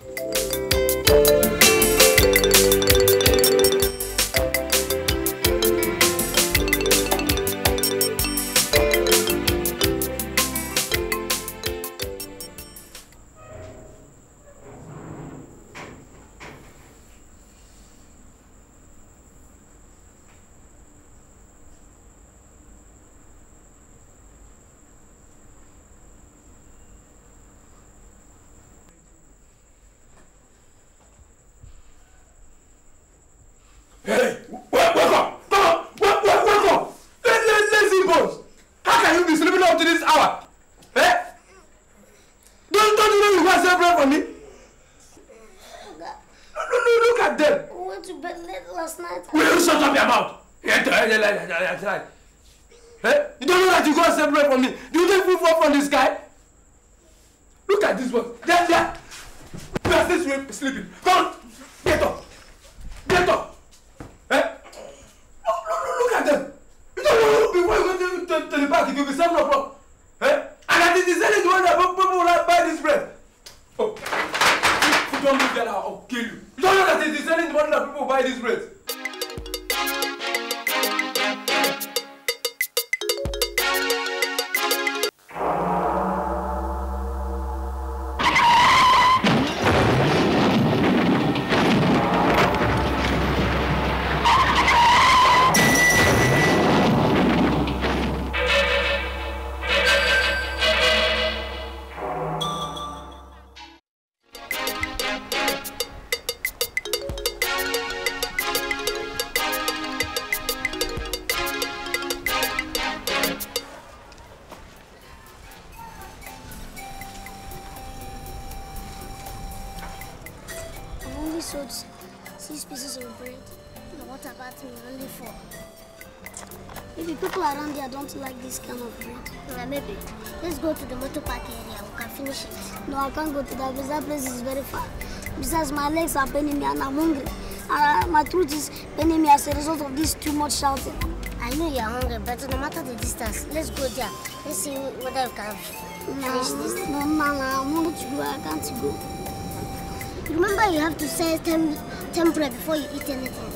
Alex and Benimia and I'm hungry. And my throat is, me as a result of this too much shouting. I know you're hungry, but no matter the distance, let's go there. Let's see whether we can finish this. No, no, no, I want to go, I can't go. Remember, you have to set tem temperature before you eat anything.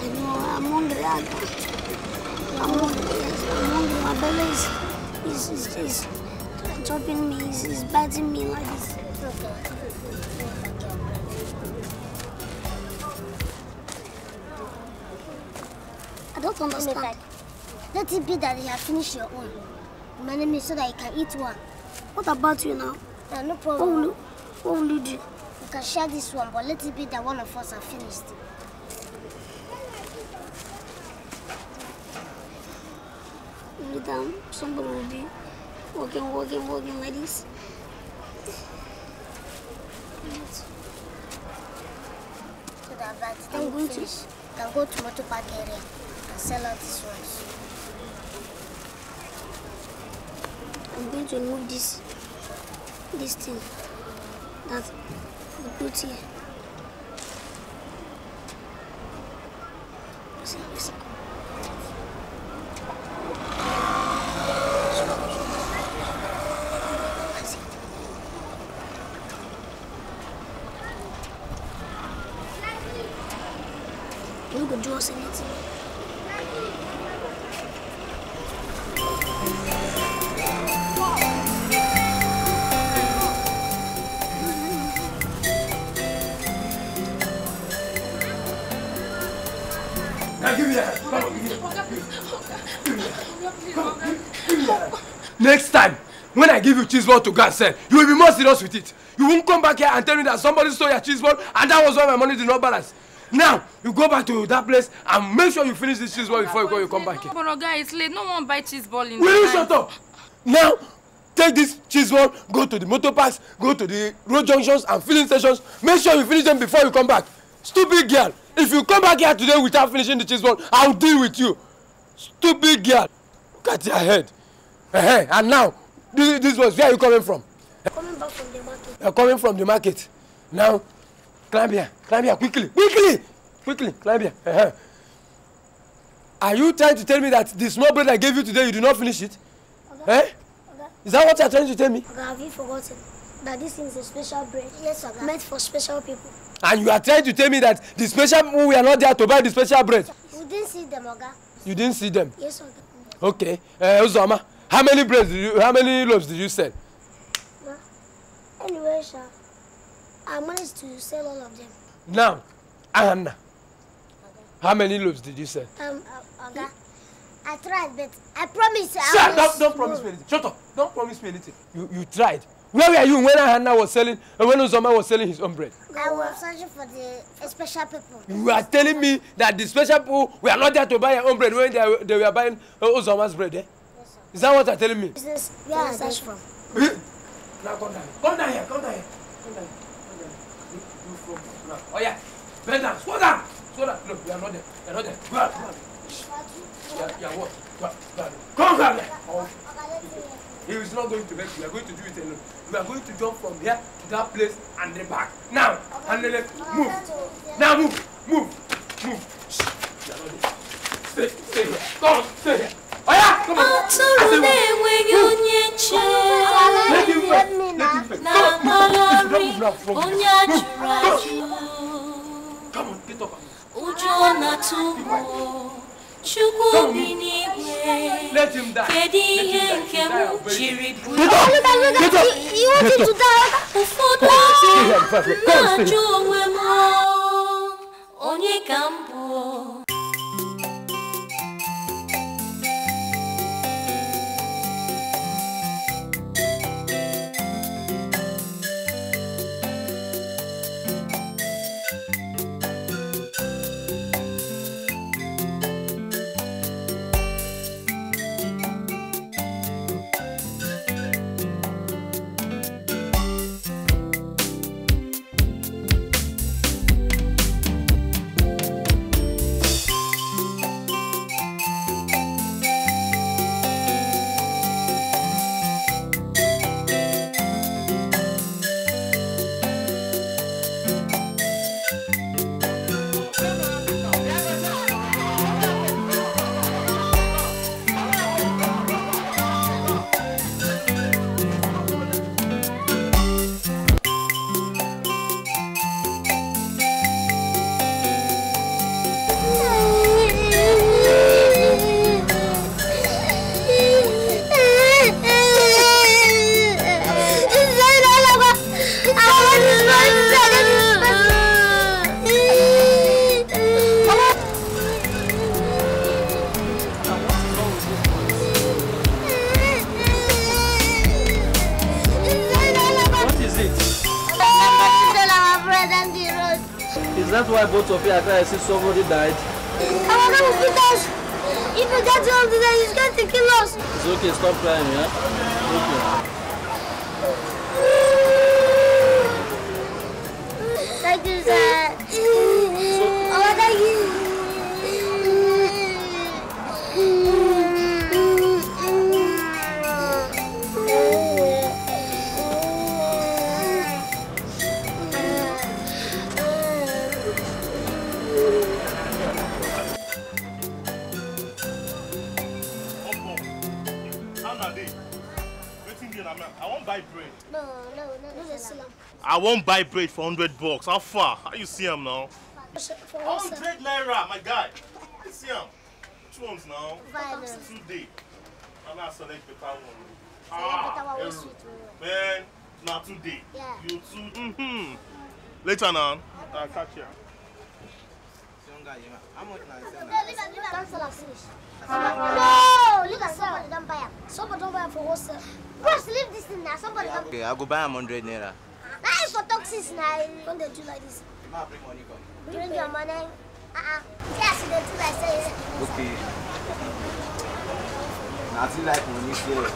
I know, I'm hungry. I I'm hungry. I'm hungry. My belly is, is, is, is chopping me, is, is biting me like this. understand. Let it be that you have finished your own. My name is so that you can eat one. What about you now? Yeah, no problem. What will, you, what will you do? You can share this one, but let it be that one of us have finished. Anytime somebody will be walking, walking, walking like this. So that by the time I'm going finish, to... go to motorbike area. sell out this rice. I'm going to remove this this thing that we put here. See, see. Look at Jaws in it. give you cheese ball to go and sell, you will be more serious with it. You won't come back here and tell me that somebody stole your cheese ball and that was why my money did not balance. Now, you go back to that place and make sure you finish this cheese ball before you go, you come back here. But guy, it's late. No one buy cheese ball in Will you shut up? Now, take this cheese ball, go to the motor parks, go to the road junctions and filling stations. Make sure you finish them before you come back. Stupid girl. If you come back here today without finishing the cheese ball, I'll deal with you. Stupid girl. Look at your head. Uh -huh. And now, this this was where are you coming from. coming back from the market. Uh, coming from the market now climb here climb here quickly quickly quickly climb here. Uh -huh. are you trying to tell me that the small bread I gave you today you do not finish it. Okay. Eh? Okay. is that what you are trying to tell me. Okay, have you forgotten that this is a special bread. yes oga meant for special people. and you are trying to tell me that the special people were not there to buy the special bread. we didn't see them oga. you didn't see them. yes oga. okay uh, Uzoma. How many braids did you, how many loaves did you sell? Ma, anyway, Sha, I managed to sell all of them. Now, Anna, okay. how many loaves did you sell? Um, uh, okay. I tried, but I promise you. Sir, I don't, don't promise me anything. Shut up. Don't promise me anything. You, you tried. Where were you when Anna was selling, uh, when Uzoma was selling his own bread? I was searching for the special people. You are telling me that the special people were not there to buy your own bread when they, they were buying uh, Uzoma's bread, eh? Is that what you're telling me? Is this where I search from? Now come down. here. Come down here. Come down here. Come down here. You from Oh yeah. Bend down. Slow down. Slow down. Look, you are not there. You are not there. Go out. Go out. Yeah, yeah, what? Go out. Come down here. He is not going to make you. We are going to do it alone. We are going to jump from here to that place and then back. Now, okay. and then left. Move. Now move. Move. Move. Shh. You are not there. Stay. Stay here. Come on. Stay here. Oya, come on. Atụrụ na-enweghị onye nche. Let him first. Let him first. Na malari, onye ajụrụ ajụ. Come on, get up. Ụjọ na-atụ m. Chukwu bi n'igwe. Kedu ihe nke m jiri bụrụ? Ụfọdụ na-ajụ onwe m. Oh, onye ka m bụ? essa sororidade. Kalanın gider. İpeden çaldılar yüzgen tekilos. Zuki stop crying ya. Zuki. Ne güzel. Ama da güzel. won't buy bread for hundred bucks how far how you see him now. hundred naira my guy you see him? two ones now two dey na na select better one. ah eru man Not today. dey you two. Mm -hmm. later now. I'll catch ya. No, look at somebody don't buy him. Somebody don't buy him for wholesale. Bro, leave this thing now. Somebody okay, don't buy him. Okay, I'll go buy him 100 naira. That is for toxics now. Don't they do like this? Bring money, Bring your money. Uh-uh. Yes, they do like say. Eh? Okay. Nothing like money here.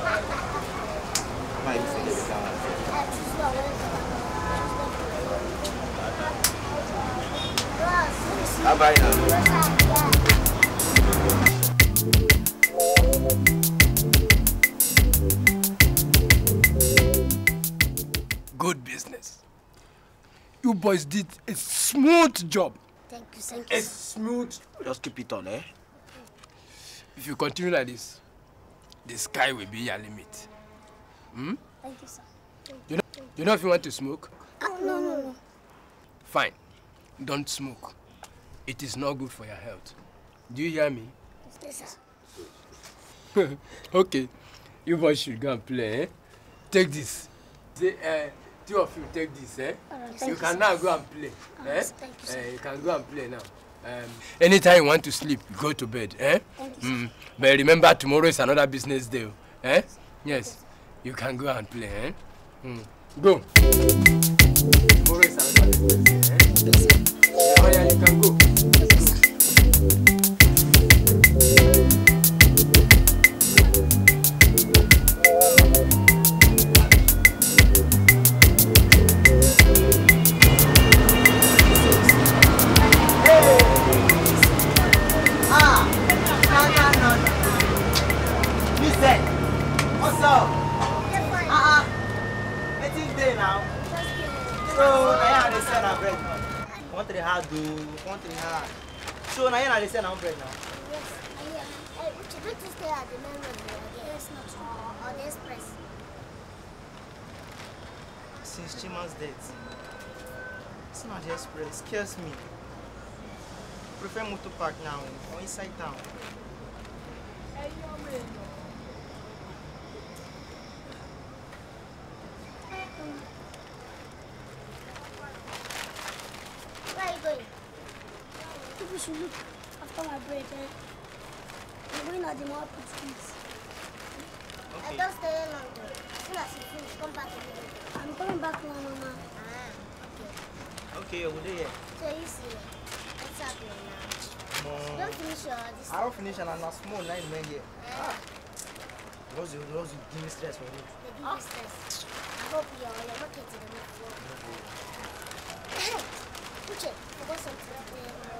Why you say this? Bye bye now. good business. You boys did a smooth job. Thank you, thank you. A smooth. Just keep it on, eh? If you continue like this, the sky will be your limit. Hmm? Thank you, sir. Thank you know, you know if you want to smoke? Oh, no, no, no. Fine. Don't smoke. It is not good for your health. Do you hear me? Yes, sir. *laughs* okay. You boys should go and play, eh? Take this. The, uh, two of you take this, eh? Right, you can you, now go and play. Oh, eh? You, eh? you, can go and play now. Um, anytime you want to sleep, go to bed. Eh? Thank mm. but remember, tomorrow is another business day. Eh? Yes, you can go and play. Eh? Mm. Go. Tomorrow is another business day. Eh? Oh, yeah, you can go. hard though. Country hard. So now you're not listening on bread now? Yes. Uh, yeah. Would you like to stay at the main road or not or, or the express? Since Chima's death, it's not the express. Scares me. I prefer to Park now or inside town. Hey, you're should look after my bread. Eh? I'm going at the more please. I don't stay longer. As soon come back again. I'm coming back my Mama. Ah, okay. Okay, over there. So you see, what's happening now? Mm. Don't finish your I don't finish and I'm not small nine men here. Ah. Lost you, give me stress for me. give me stress. I hope you're on your market in the next one. Puche, I got something.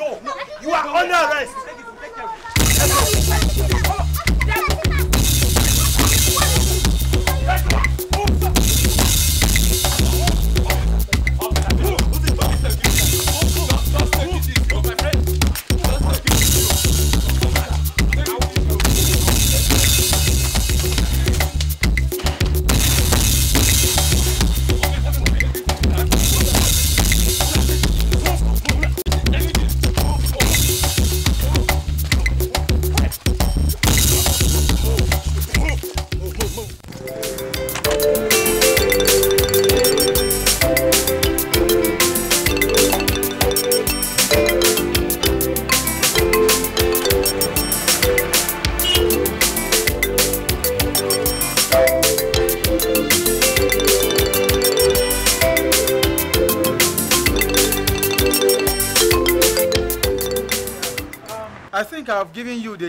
Go. You are under arrest.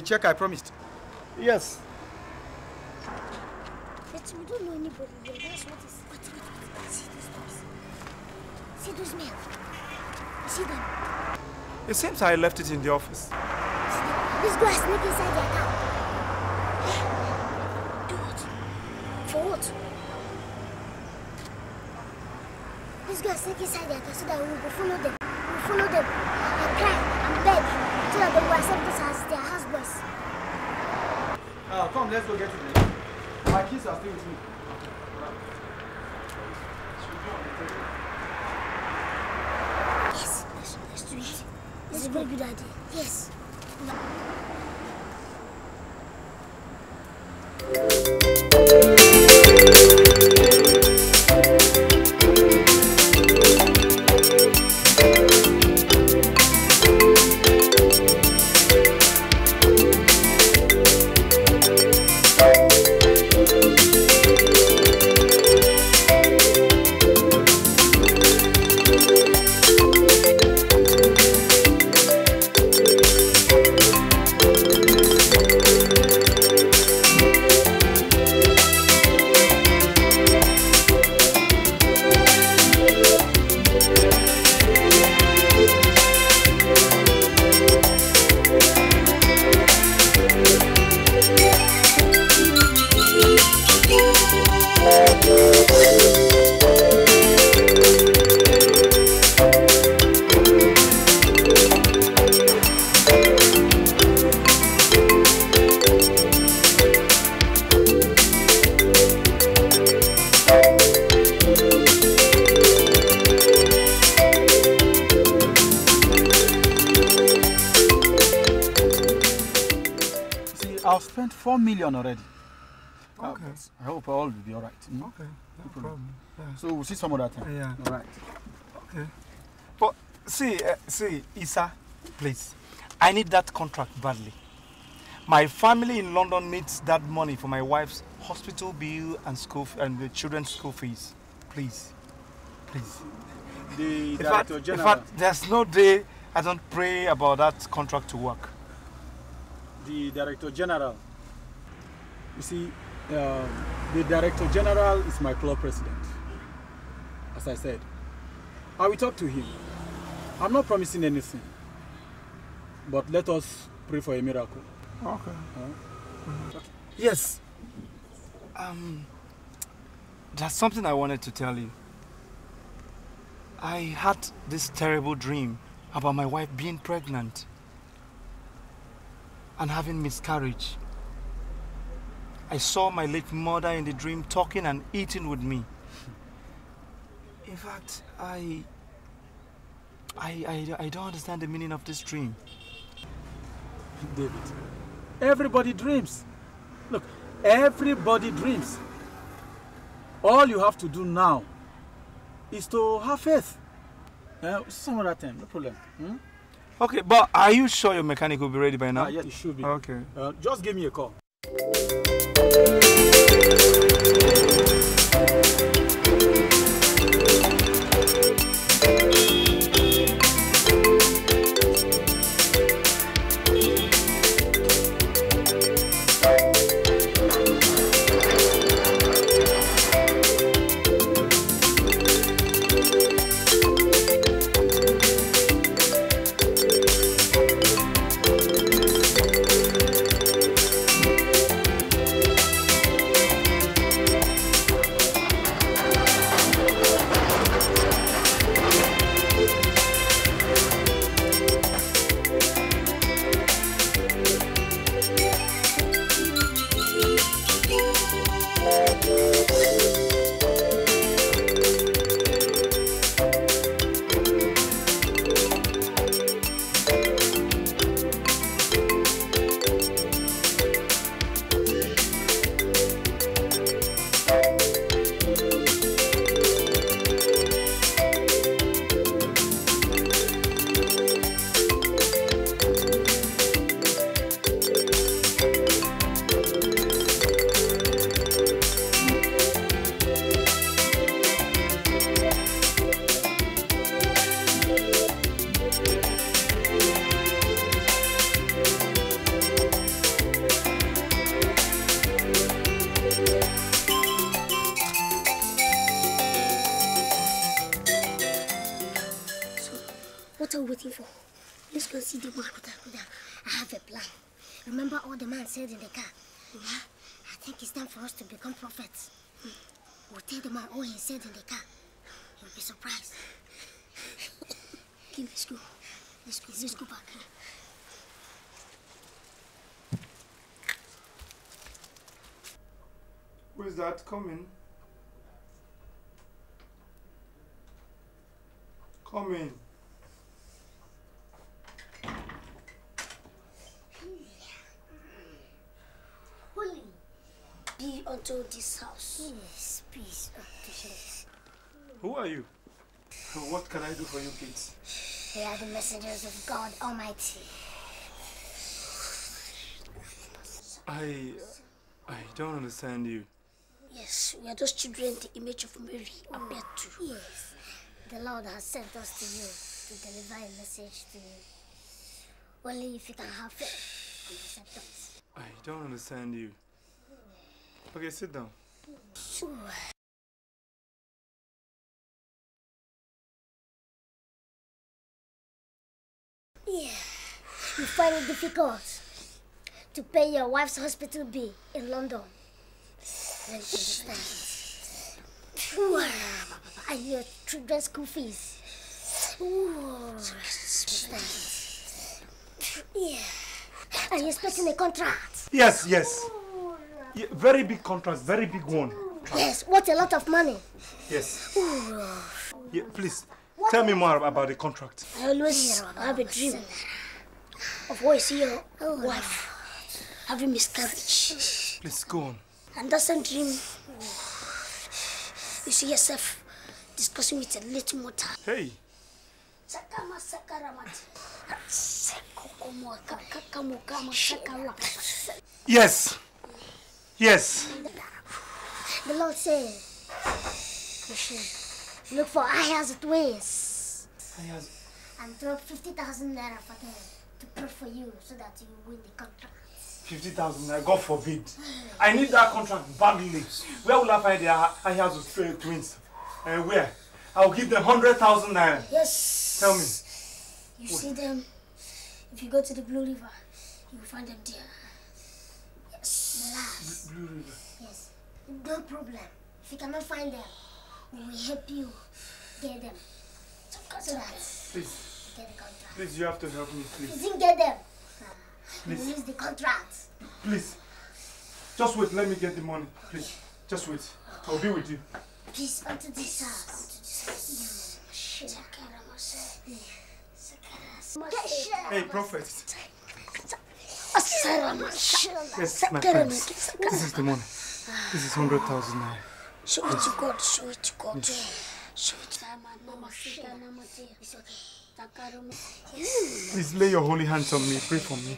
the check I promised? Yes. But we don't know anybody That's what is. Wait, wait, wait. See those See those men. See them. It seems I left it in the office. Yes, yes, yes, yes. This is a very good idea. Yes. So we'll see some other time. Yeah. All right. Okay. But see, uh, see, Isa, please. I need that contract badly. My family in London needs that money for my wife's hospital bill and school and the children's school fees. Please, please. The director in fact, general. In fact, there's no day I don't pray about that contract to work. The director general. You see, uh, the director general is my club president as I said. I will talk to him. I'm not promising anything. But let us pray for a miracle. Okay. Huh? okay. Yes. Um, there's something I wanted to tell you. I had this terrible dream about my wife being pregnant and having miscarriage. I saw my late mother in the dream talking and eating with me. In fact, I, I, I, I don't understand the meaning of this dream. David, everybody dreams. Look, everybody dreams. All you have to do now is to have faith. Uh, some other time, no problem. Hmm? Okay, but are you sure your mechanic will be ready by now? Ah, yeah, it should be. Okay. Uh, just give me a call. coming. Coming. Holy, be unto this house. Yes, peace yes. Who are you? What can I do for you kids? They are the messengers of God Almighty. I... I don't understand you we are those children the image of Mary appeared to. Oh, yes. The Lord has sent us to you to deliver a message to you. Only if you can have faith I don't understand you. Okay, sit down. Yeah. You find it difficult to pay your wife's hospital bill in London. I hear dress goofies. Yeah. Are you expecting a contract? Yes, yes. Yeah, very big contract, very big one. Yes, what a lot of money. Yes. Yeah, please, what? tell me more about the contract. I always have a dream of always seeing your wife having miscarriage. Please, go on and that's a dream. *sighs* You see yourself discussing with a little more time. Hey. Sakama Yes. Yes. The Lord says look for eye as it ways. And throw 50,000 naira for them to pray for you so that you win the contract. 50,000 God forbid. I need that contract badly. Where will I find the Ayazu uh, twins? Uh, where? I'll give them 100,000 naira. Yes. Tell me. You see them, if you go to the Blue River, you will find them there. Yes. Blue River? Yes. No problem. If you cannot find them, we will help you get them. So that. Please. Get the contract. Please, you have to help me, please. Please get them. Please. Release the contract. Please. Just wait, let me get the money. Please. Just wait. I'll be with you. Please, onto this house. Hey, prophet. Yes, my friends. This is the money. This is 100,000 naira. Show it to God, show it to God. Show it to Mama. Please lay your holy hands on me, pray for me.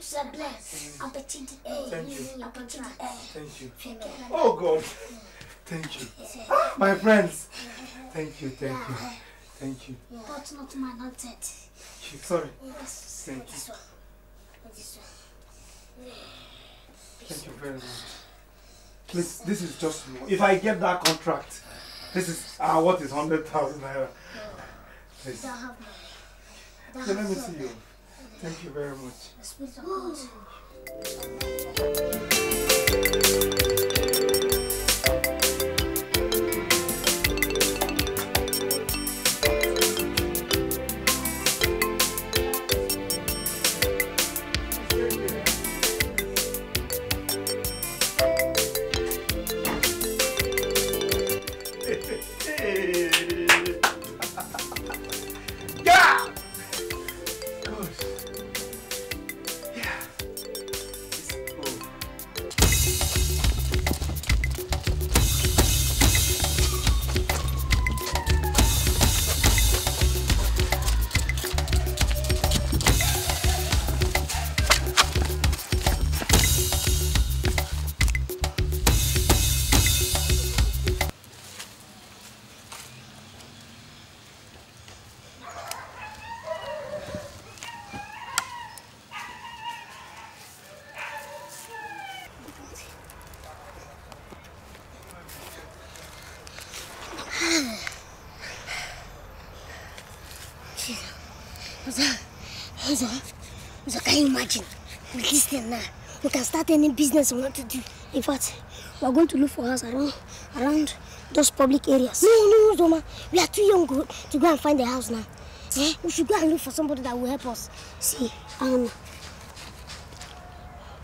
Thank you. Oh God. Thank you. Ah, my friends. Thank you. Thank you. Thank you. But not my not that. Sorry. Thank you. Thank you very much. Please, this is just If I get that contract, this is ah, what is hundred thousand naira? Please. So let me see you. Thank you very much. *gasps* *laughs* any business I want to do. In fact, we are going to look for us around around those public areas. No, no, no, Zoma. We are too young to go and find a house now. Eh? We should go and look for somebody that will help us. See, um,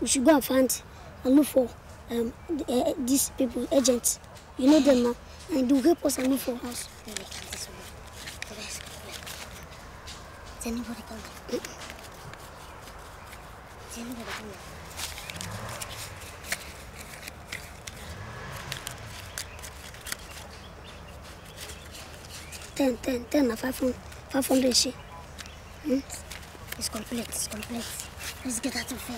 we should go and find and look for um, uh, these people, agents. You know them now. And they will help us and look for us. Is anybody coming? Is anybody coming? 10, 10, 10 500, she. Hmm? It's complete, it's complete. Let's get out of here.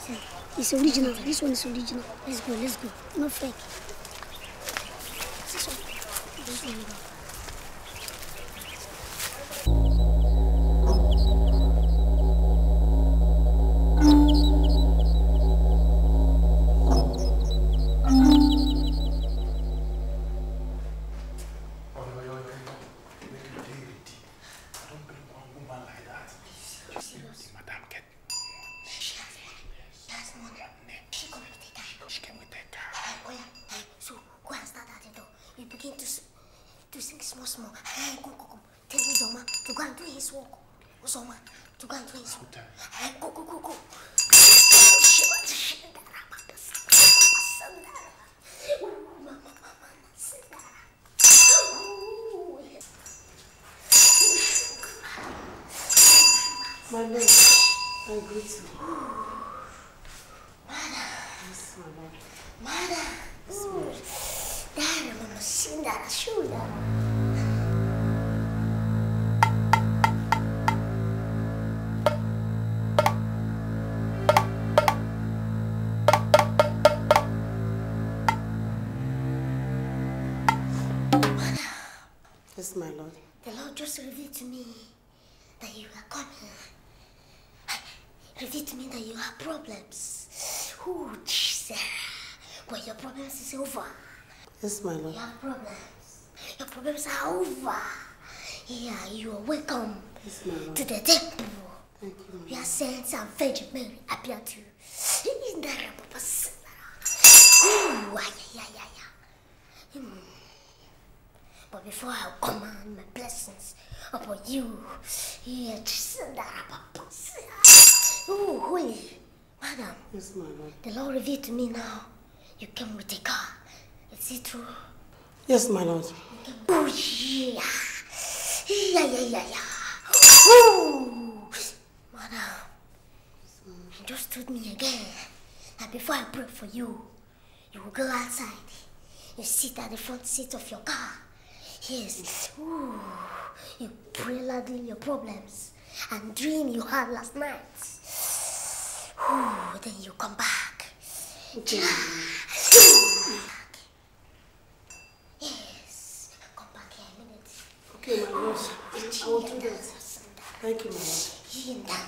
See, it's original. This one is original. Let's go, let's go. No fake. This one. This one. Yes, my lord. Your problems. Your problems are over. Yeah, you are welcome yes, to the temple. Thank you. We are saying and Virgin Mary appear to you. In the name of Ooh, yeah, yeah, yeah. But before I command my blessings upon you, yeah, Ooh, holy, madam. Yes, my lord. The Lord revealed to me now. You came with a car. Is it true? Yes, my lord. Oh, yeah. Yeah, yeah, yeah, yeah. Oh, madam. You just told me again that before I pray for you, you will go outside. You sit at the front seat of your car. Yes. Ooh. You pray loudly your problems and dream you had last night. Ooh, then you come back. Yeah. Thank you, Mom.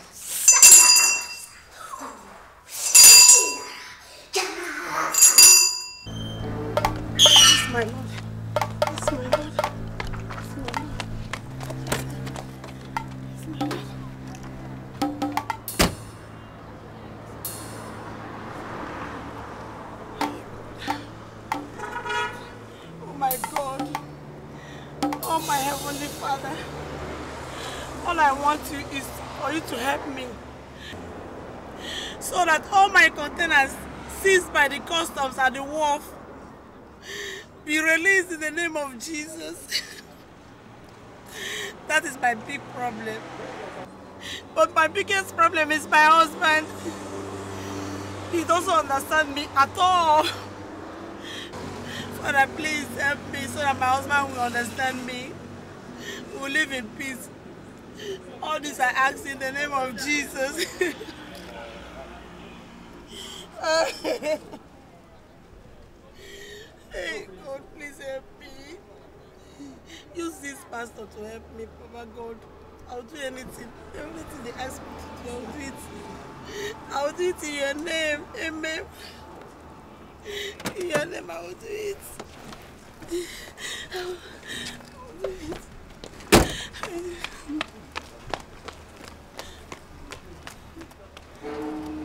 at the wharf be released in the name of Jesus. that is my big problem. But my biggest problem is my husband. He doesn't understand me at all. Father, please help me so that my husband will understand me. We'll live in peace. All this I ask in the name of Jesus. *laughs* use this pastor to help me, Papa God. I'll do anything. Everything they ask me to do, I'll do it. I'll do it in your name. Amen. In your name, I will do it. I will do it. I will do it.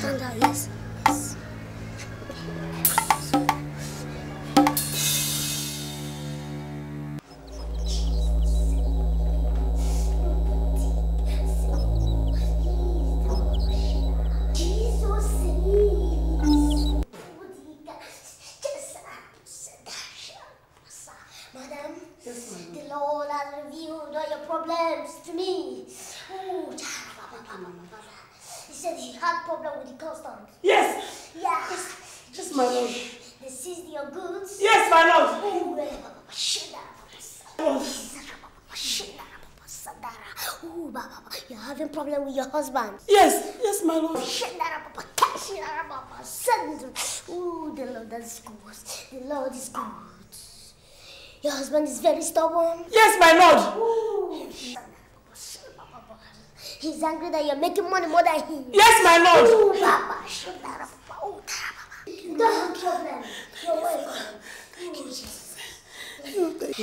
看到了。having problem with your husband? Yes, yes, my lord. Papa, Papa, Ooh, the Lord is good. The Lord is good. Your husband is very stubborn. Yes, my lord. Ooh. He's angry that you're making money more than him. Yes, my lord. Ooh, Baba, Don't have problem. You're Thank you, Jesus.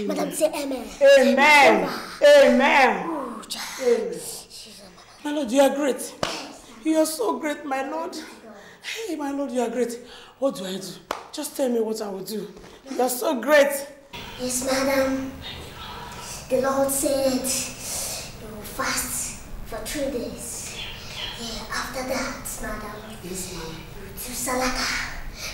Madam, say amen. Amen. Amen. amen. amen. My Lord, you are great. You are so great, my Lord. Hey, my Lord, you are great. What do I do? Just tell me what I will do. You are so great. Yes, madam. The Lord said you will fast for three days. Yeah, after that, madam, yes, ma'am. To salaka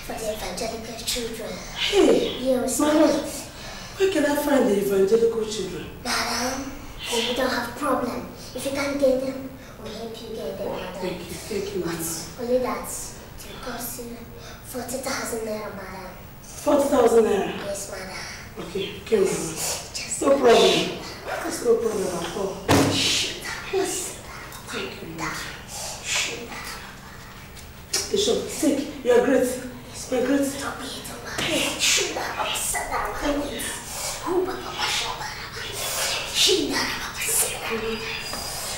for the evangelical children. Hey, yes, my Lord, where can I find the evangelical children? Madam, we don't have problem if you can't get them only thank you get another. Only that. It costs you 40,000 naira, madam. 40,000 naira? Yes, madam. Okay, okay, madam. Just no problem. That's no problem at all. Yes. Thank you, madam. Bishop, sick. You're great. You're great. Stop it, madam. Shunda, upside down. Who, Papa, Papa, Shunda, upside down.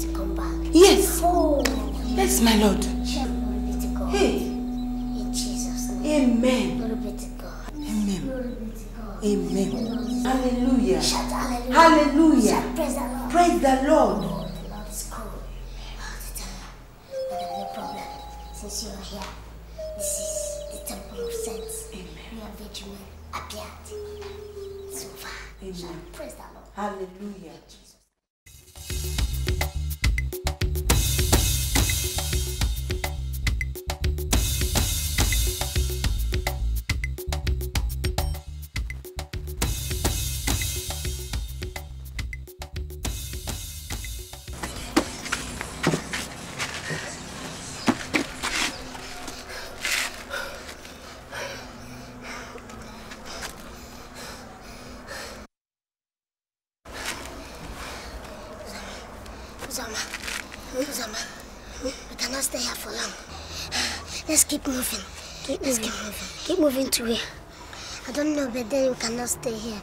to come back. Yes. Oh. Yes, my Lord. Hey. In Jesus' name. Amen. Glory be to God. Amen. Glory be to God. Amen. Amen. Hallelujah. Shout hallelujah. Hallelujah. Shout praise the Lord. Praise the Lord. Oh, the Lord is no problem. Since you are here, this is the temple of saints. Amen. We are vigilant, appeared. So far. Amen. Shout praise the Lord. Hallelujah. Jesus. moving to here. I don't know, but then we cannot stay here.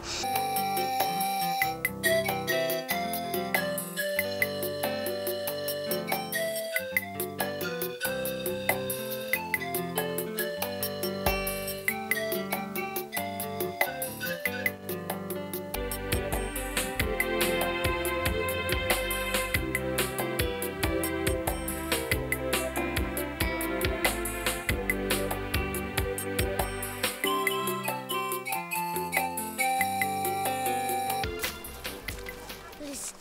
Please.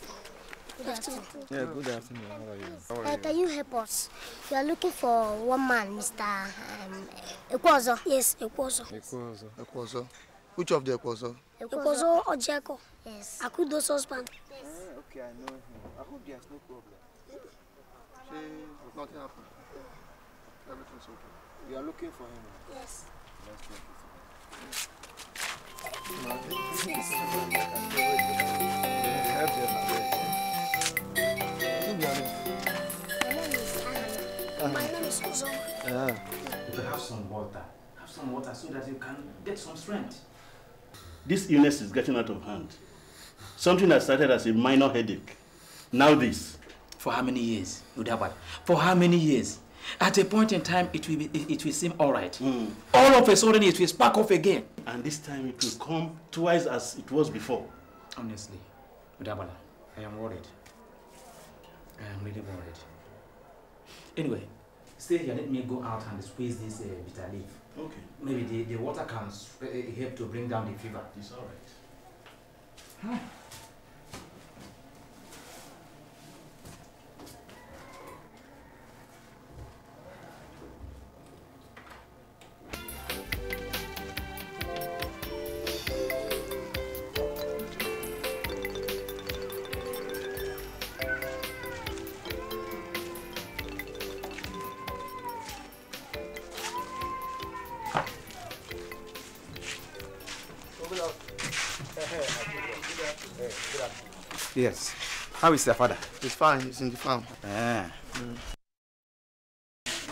Good afternoon. Yeah, good afternoon. How are you? How are uh, you? Can you help us? We are looking for one man, Mr. Um, Ekwozo. Yes, Ekwozo. Ekwozo. Ekwozo. Which of the Ekwozo? Ekwozo Ojeko. Yes. Akudo's husband. Yes. Uh, okay, I know him. I hope there's no problem. She, nothing happened. Everything's okay. You are looking for him? Yes. Let's check have some water. Have some water so that you can get some strength. This illness is getting out of hand. Something that started as a minor headache. Now this. For how many years, Udabad? For how many years? At a point in time, it will, be, it, it will seem all right. Mm. All of a sudden, it will spark off again. And this time, it will come twice as it was before. Honestly, Mudabala, I am worried. I am really worried. Anyway, stay here. Let me go out and squeeze this uh, bitter leaf. Okay. Maybe the, the water can uh, uh, help to bring down the fever. It's all right. Huh. How is their father? He's fine. He's in the farm. Ah. Mm.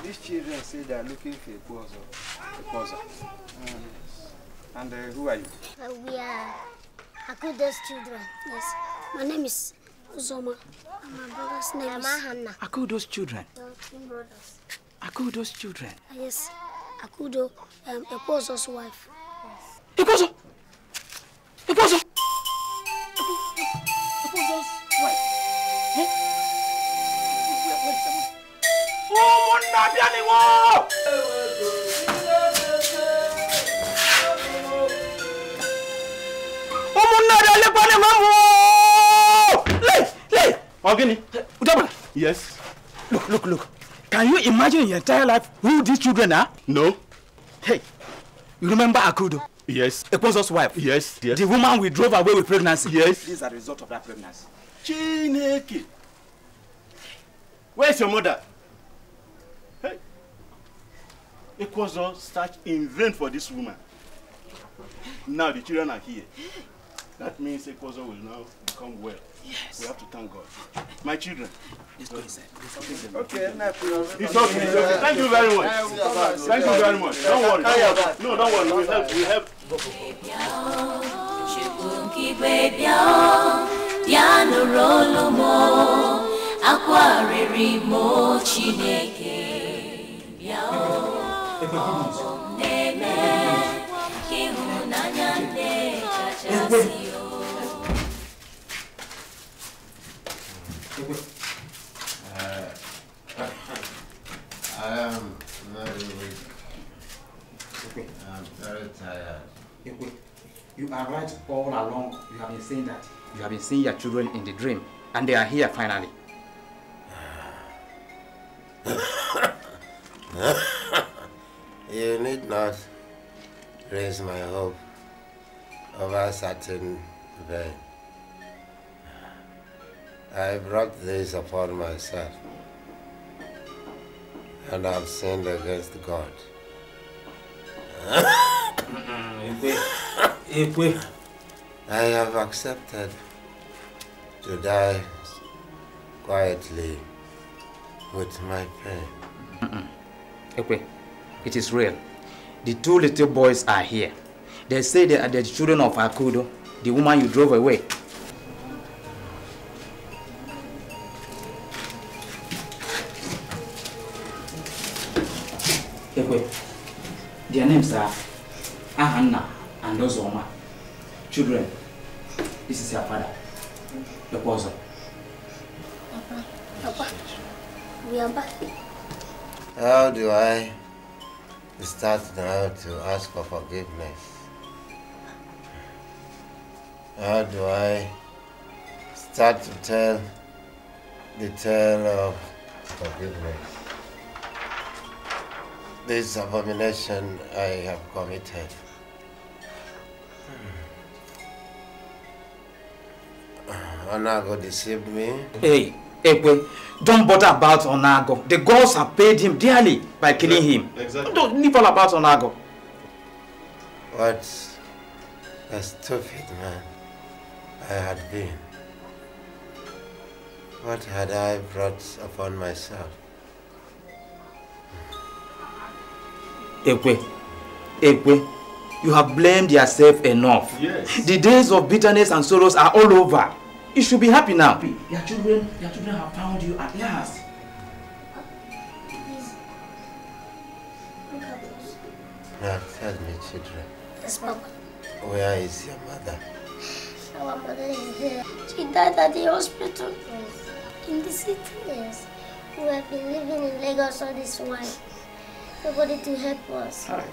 These children say they are looking for a Kozo. A Mm. And uh, who are you? Uh, we are Akudo's children. Yes. My name is Uzoma. And my brother's name is... Hanna. Akudo's children? Akudo's children? Uh, yes. Akudo, um, Ekozo's wife. Yes. Ekozo! ọmọ nàbíà ni wọ́n. ọmọ nàbíà lẹ́pọ̀ ni wọ́n mú o. lè lè. ọ̀gbìnì. dọ́bà. yes. look look look can you imagine your entire life who these children are. no. hey you remember akudo. Yes. Ekponzo's wife. Yes, yes. The woman we drove away with pregnancy. Yes. This is a result of that pregnancy. Chineke. Where is your mother? Ekozo searched in vain for this woman. Now the children are here. That means Ekozo will now become well. Yes. We have to thank God. My children. Let's go Okay, it's okay. It's okay. Thank you very much. Thank you very much. Don't worry. No, don't worry. We have, We have. Ya nụrụ olu m akwa Chineke bịa I am very tired. You are right all along. You have been saying that. You have been seeing your children in the dream, and they are here finally. *coughs* *coughs* you need not raise my hope over a certain vain. I brought this upon myself, and I've sinned against God. *coughs* I have accepted to die quietly with my pain. Okay. *coughs* It is real. The two little boys are here. They say they are the children of Akudo, the woman you drove away. forgiveness? How do I start to tell the tale of forgiveness? This abomination I have committed. Onago deceived me. Hey, Ekwe, don't bother about Onago. The gods have paid him dearly by killing him. Exactly. Don't nibble about Onago. What a stupid man I had been. What had I brought upon myself? Ekwe, Ekwe, you have blamed yourself enough. Yes. The days of bitterness and sorrows are all over. You should be happy now. Your children, your children have found you at last. Now tell me, children. Yes, Mama. Where is your mother? Our mother is there. She died at the hospital. Yes. In the city? Yes. We have been living in Lagos all this while. Nobody to help us. Hi.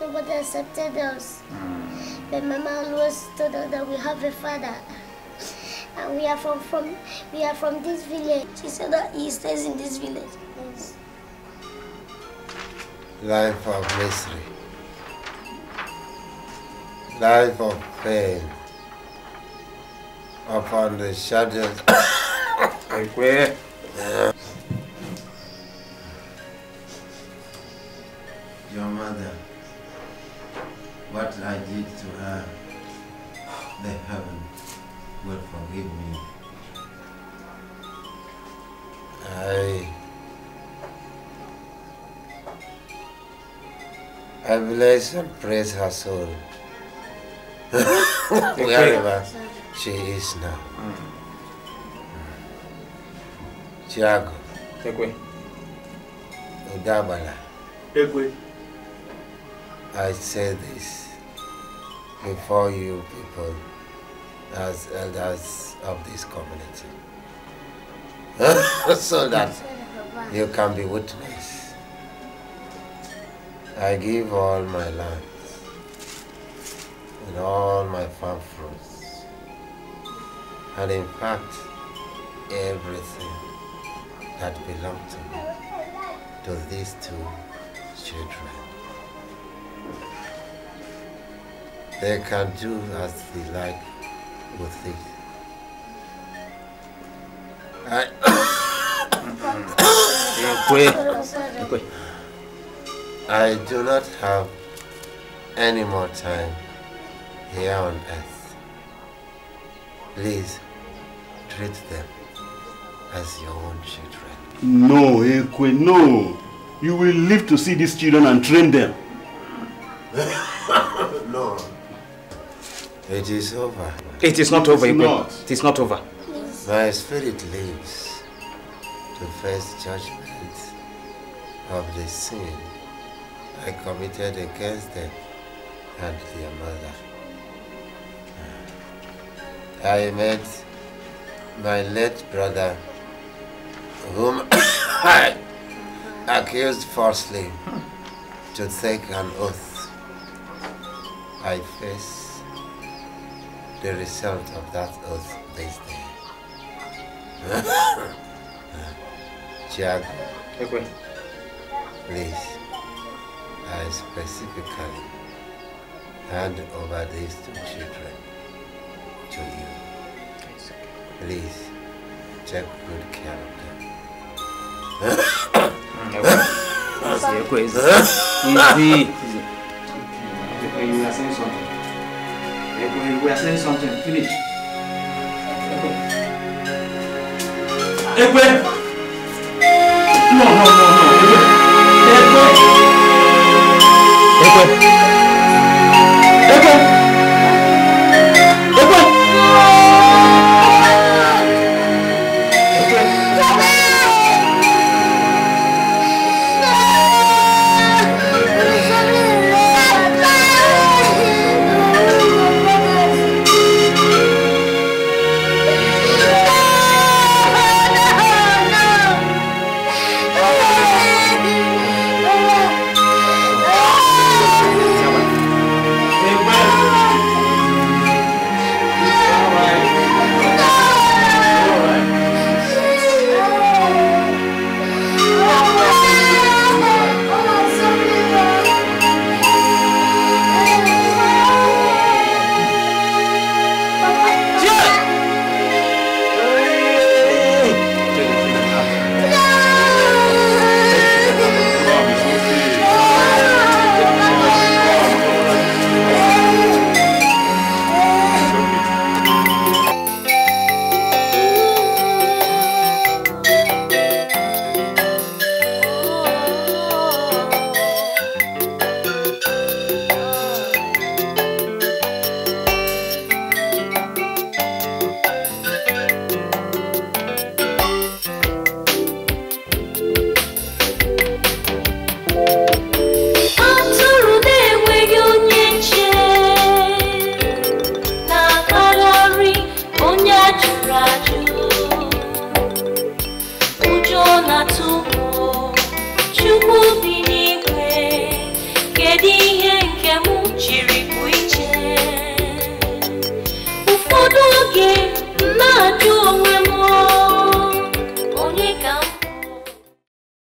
Nobody accepted us. Mm. But Mama always told us that we have a father. And we are from, from we are from this village. She said that he stays in this village. Yes. Life of misery life of pain upon the shadows of *coughs* prayer. Your mother, what I did to her, the heaven will forgive me. I, I bless and praise her soul wherever she is now. Tiago. Ekwe. Udabala. Ekwe. I say this before you people as elders of this community. *laughs* so that you can be witness. I give all my land in all my farm fruits, and in fact, everything that belonged to me, to these two children. They can do as they like with it. I *coughs* I do not have any more time here on earth. Please treat them as your own children. No, Ekwe, no. You will live to see these children and train them. *laughs* no. It is over. It is not over, Ekwe. It is not over. My spirit lives to face judgment of the sin I committed against them and their mother. I met my late brother, whom I *coughs* accused falsely to take an oath. I face the result of that oath this day. Jack, *coughs* okay. please, I specifically hand over these two children to you. Please, check good character. of them. Easy. You are saying something. You are saying something. Finish. Ekwe! No, no, no, no. Ekwe! Ekwe!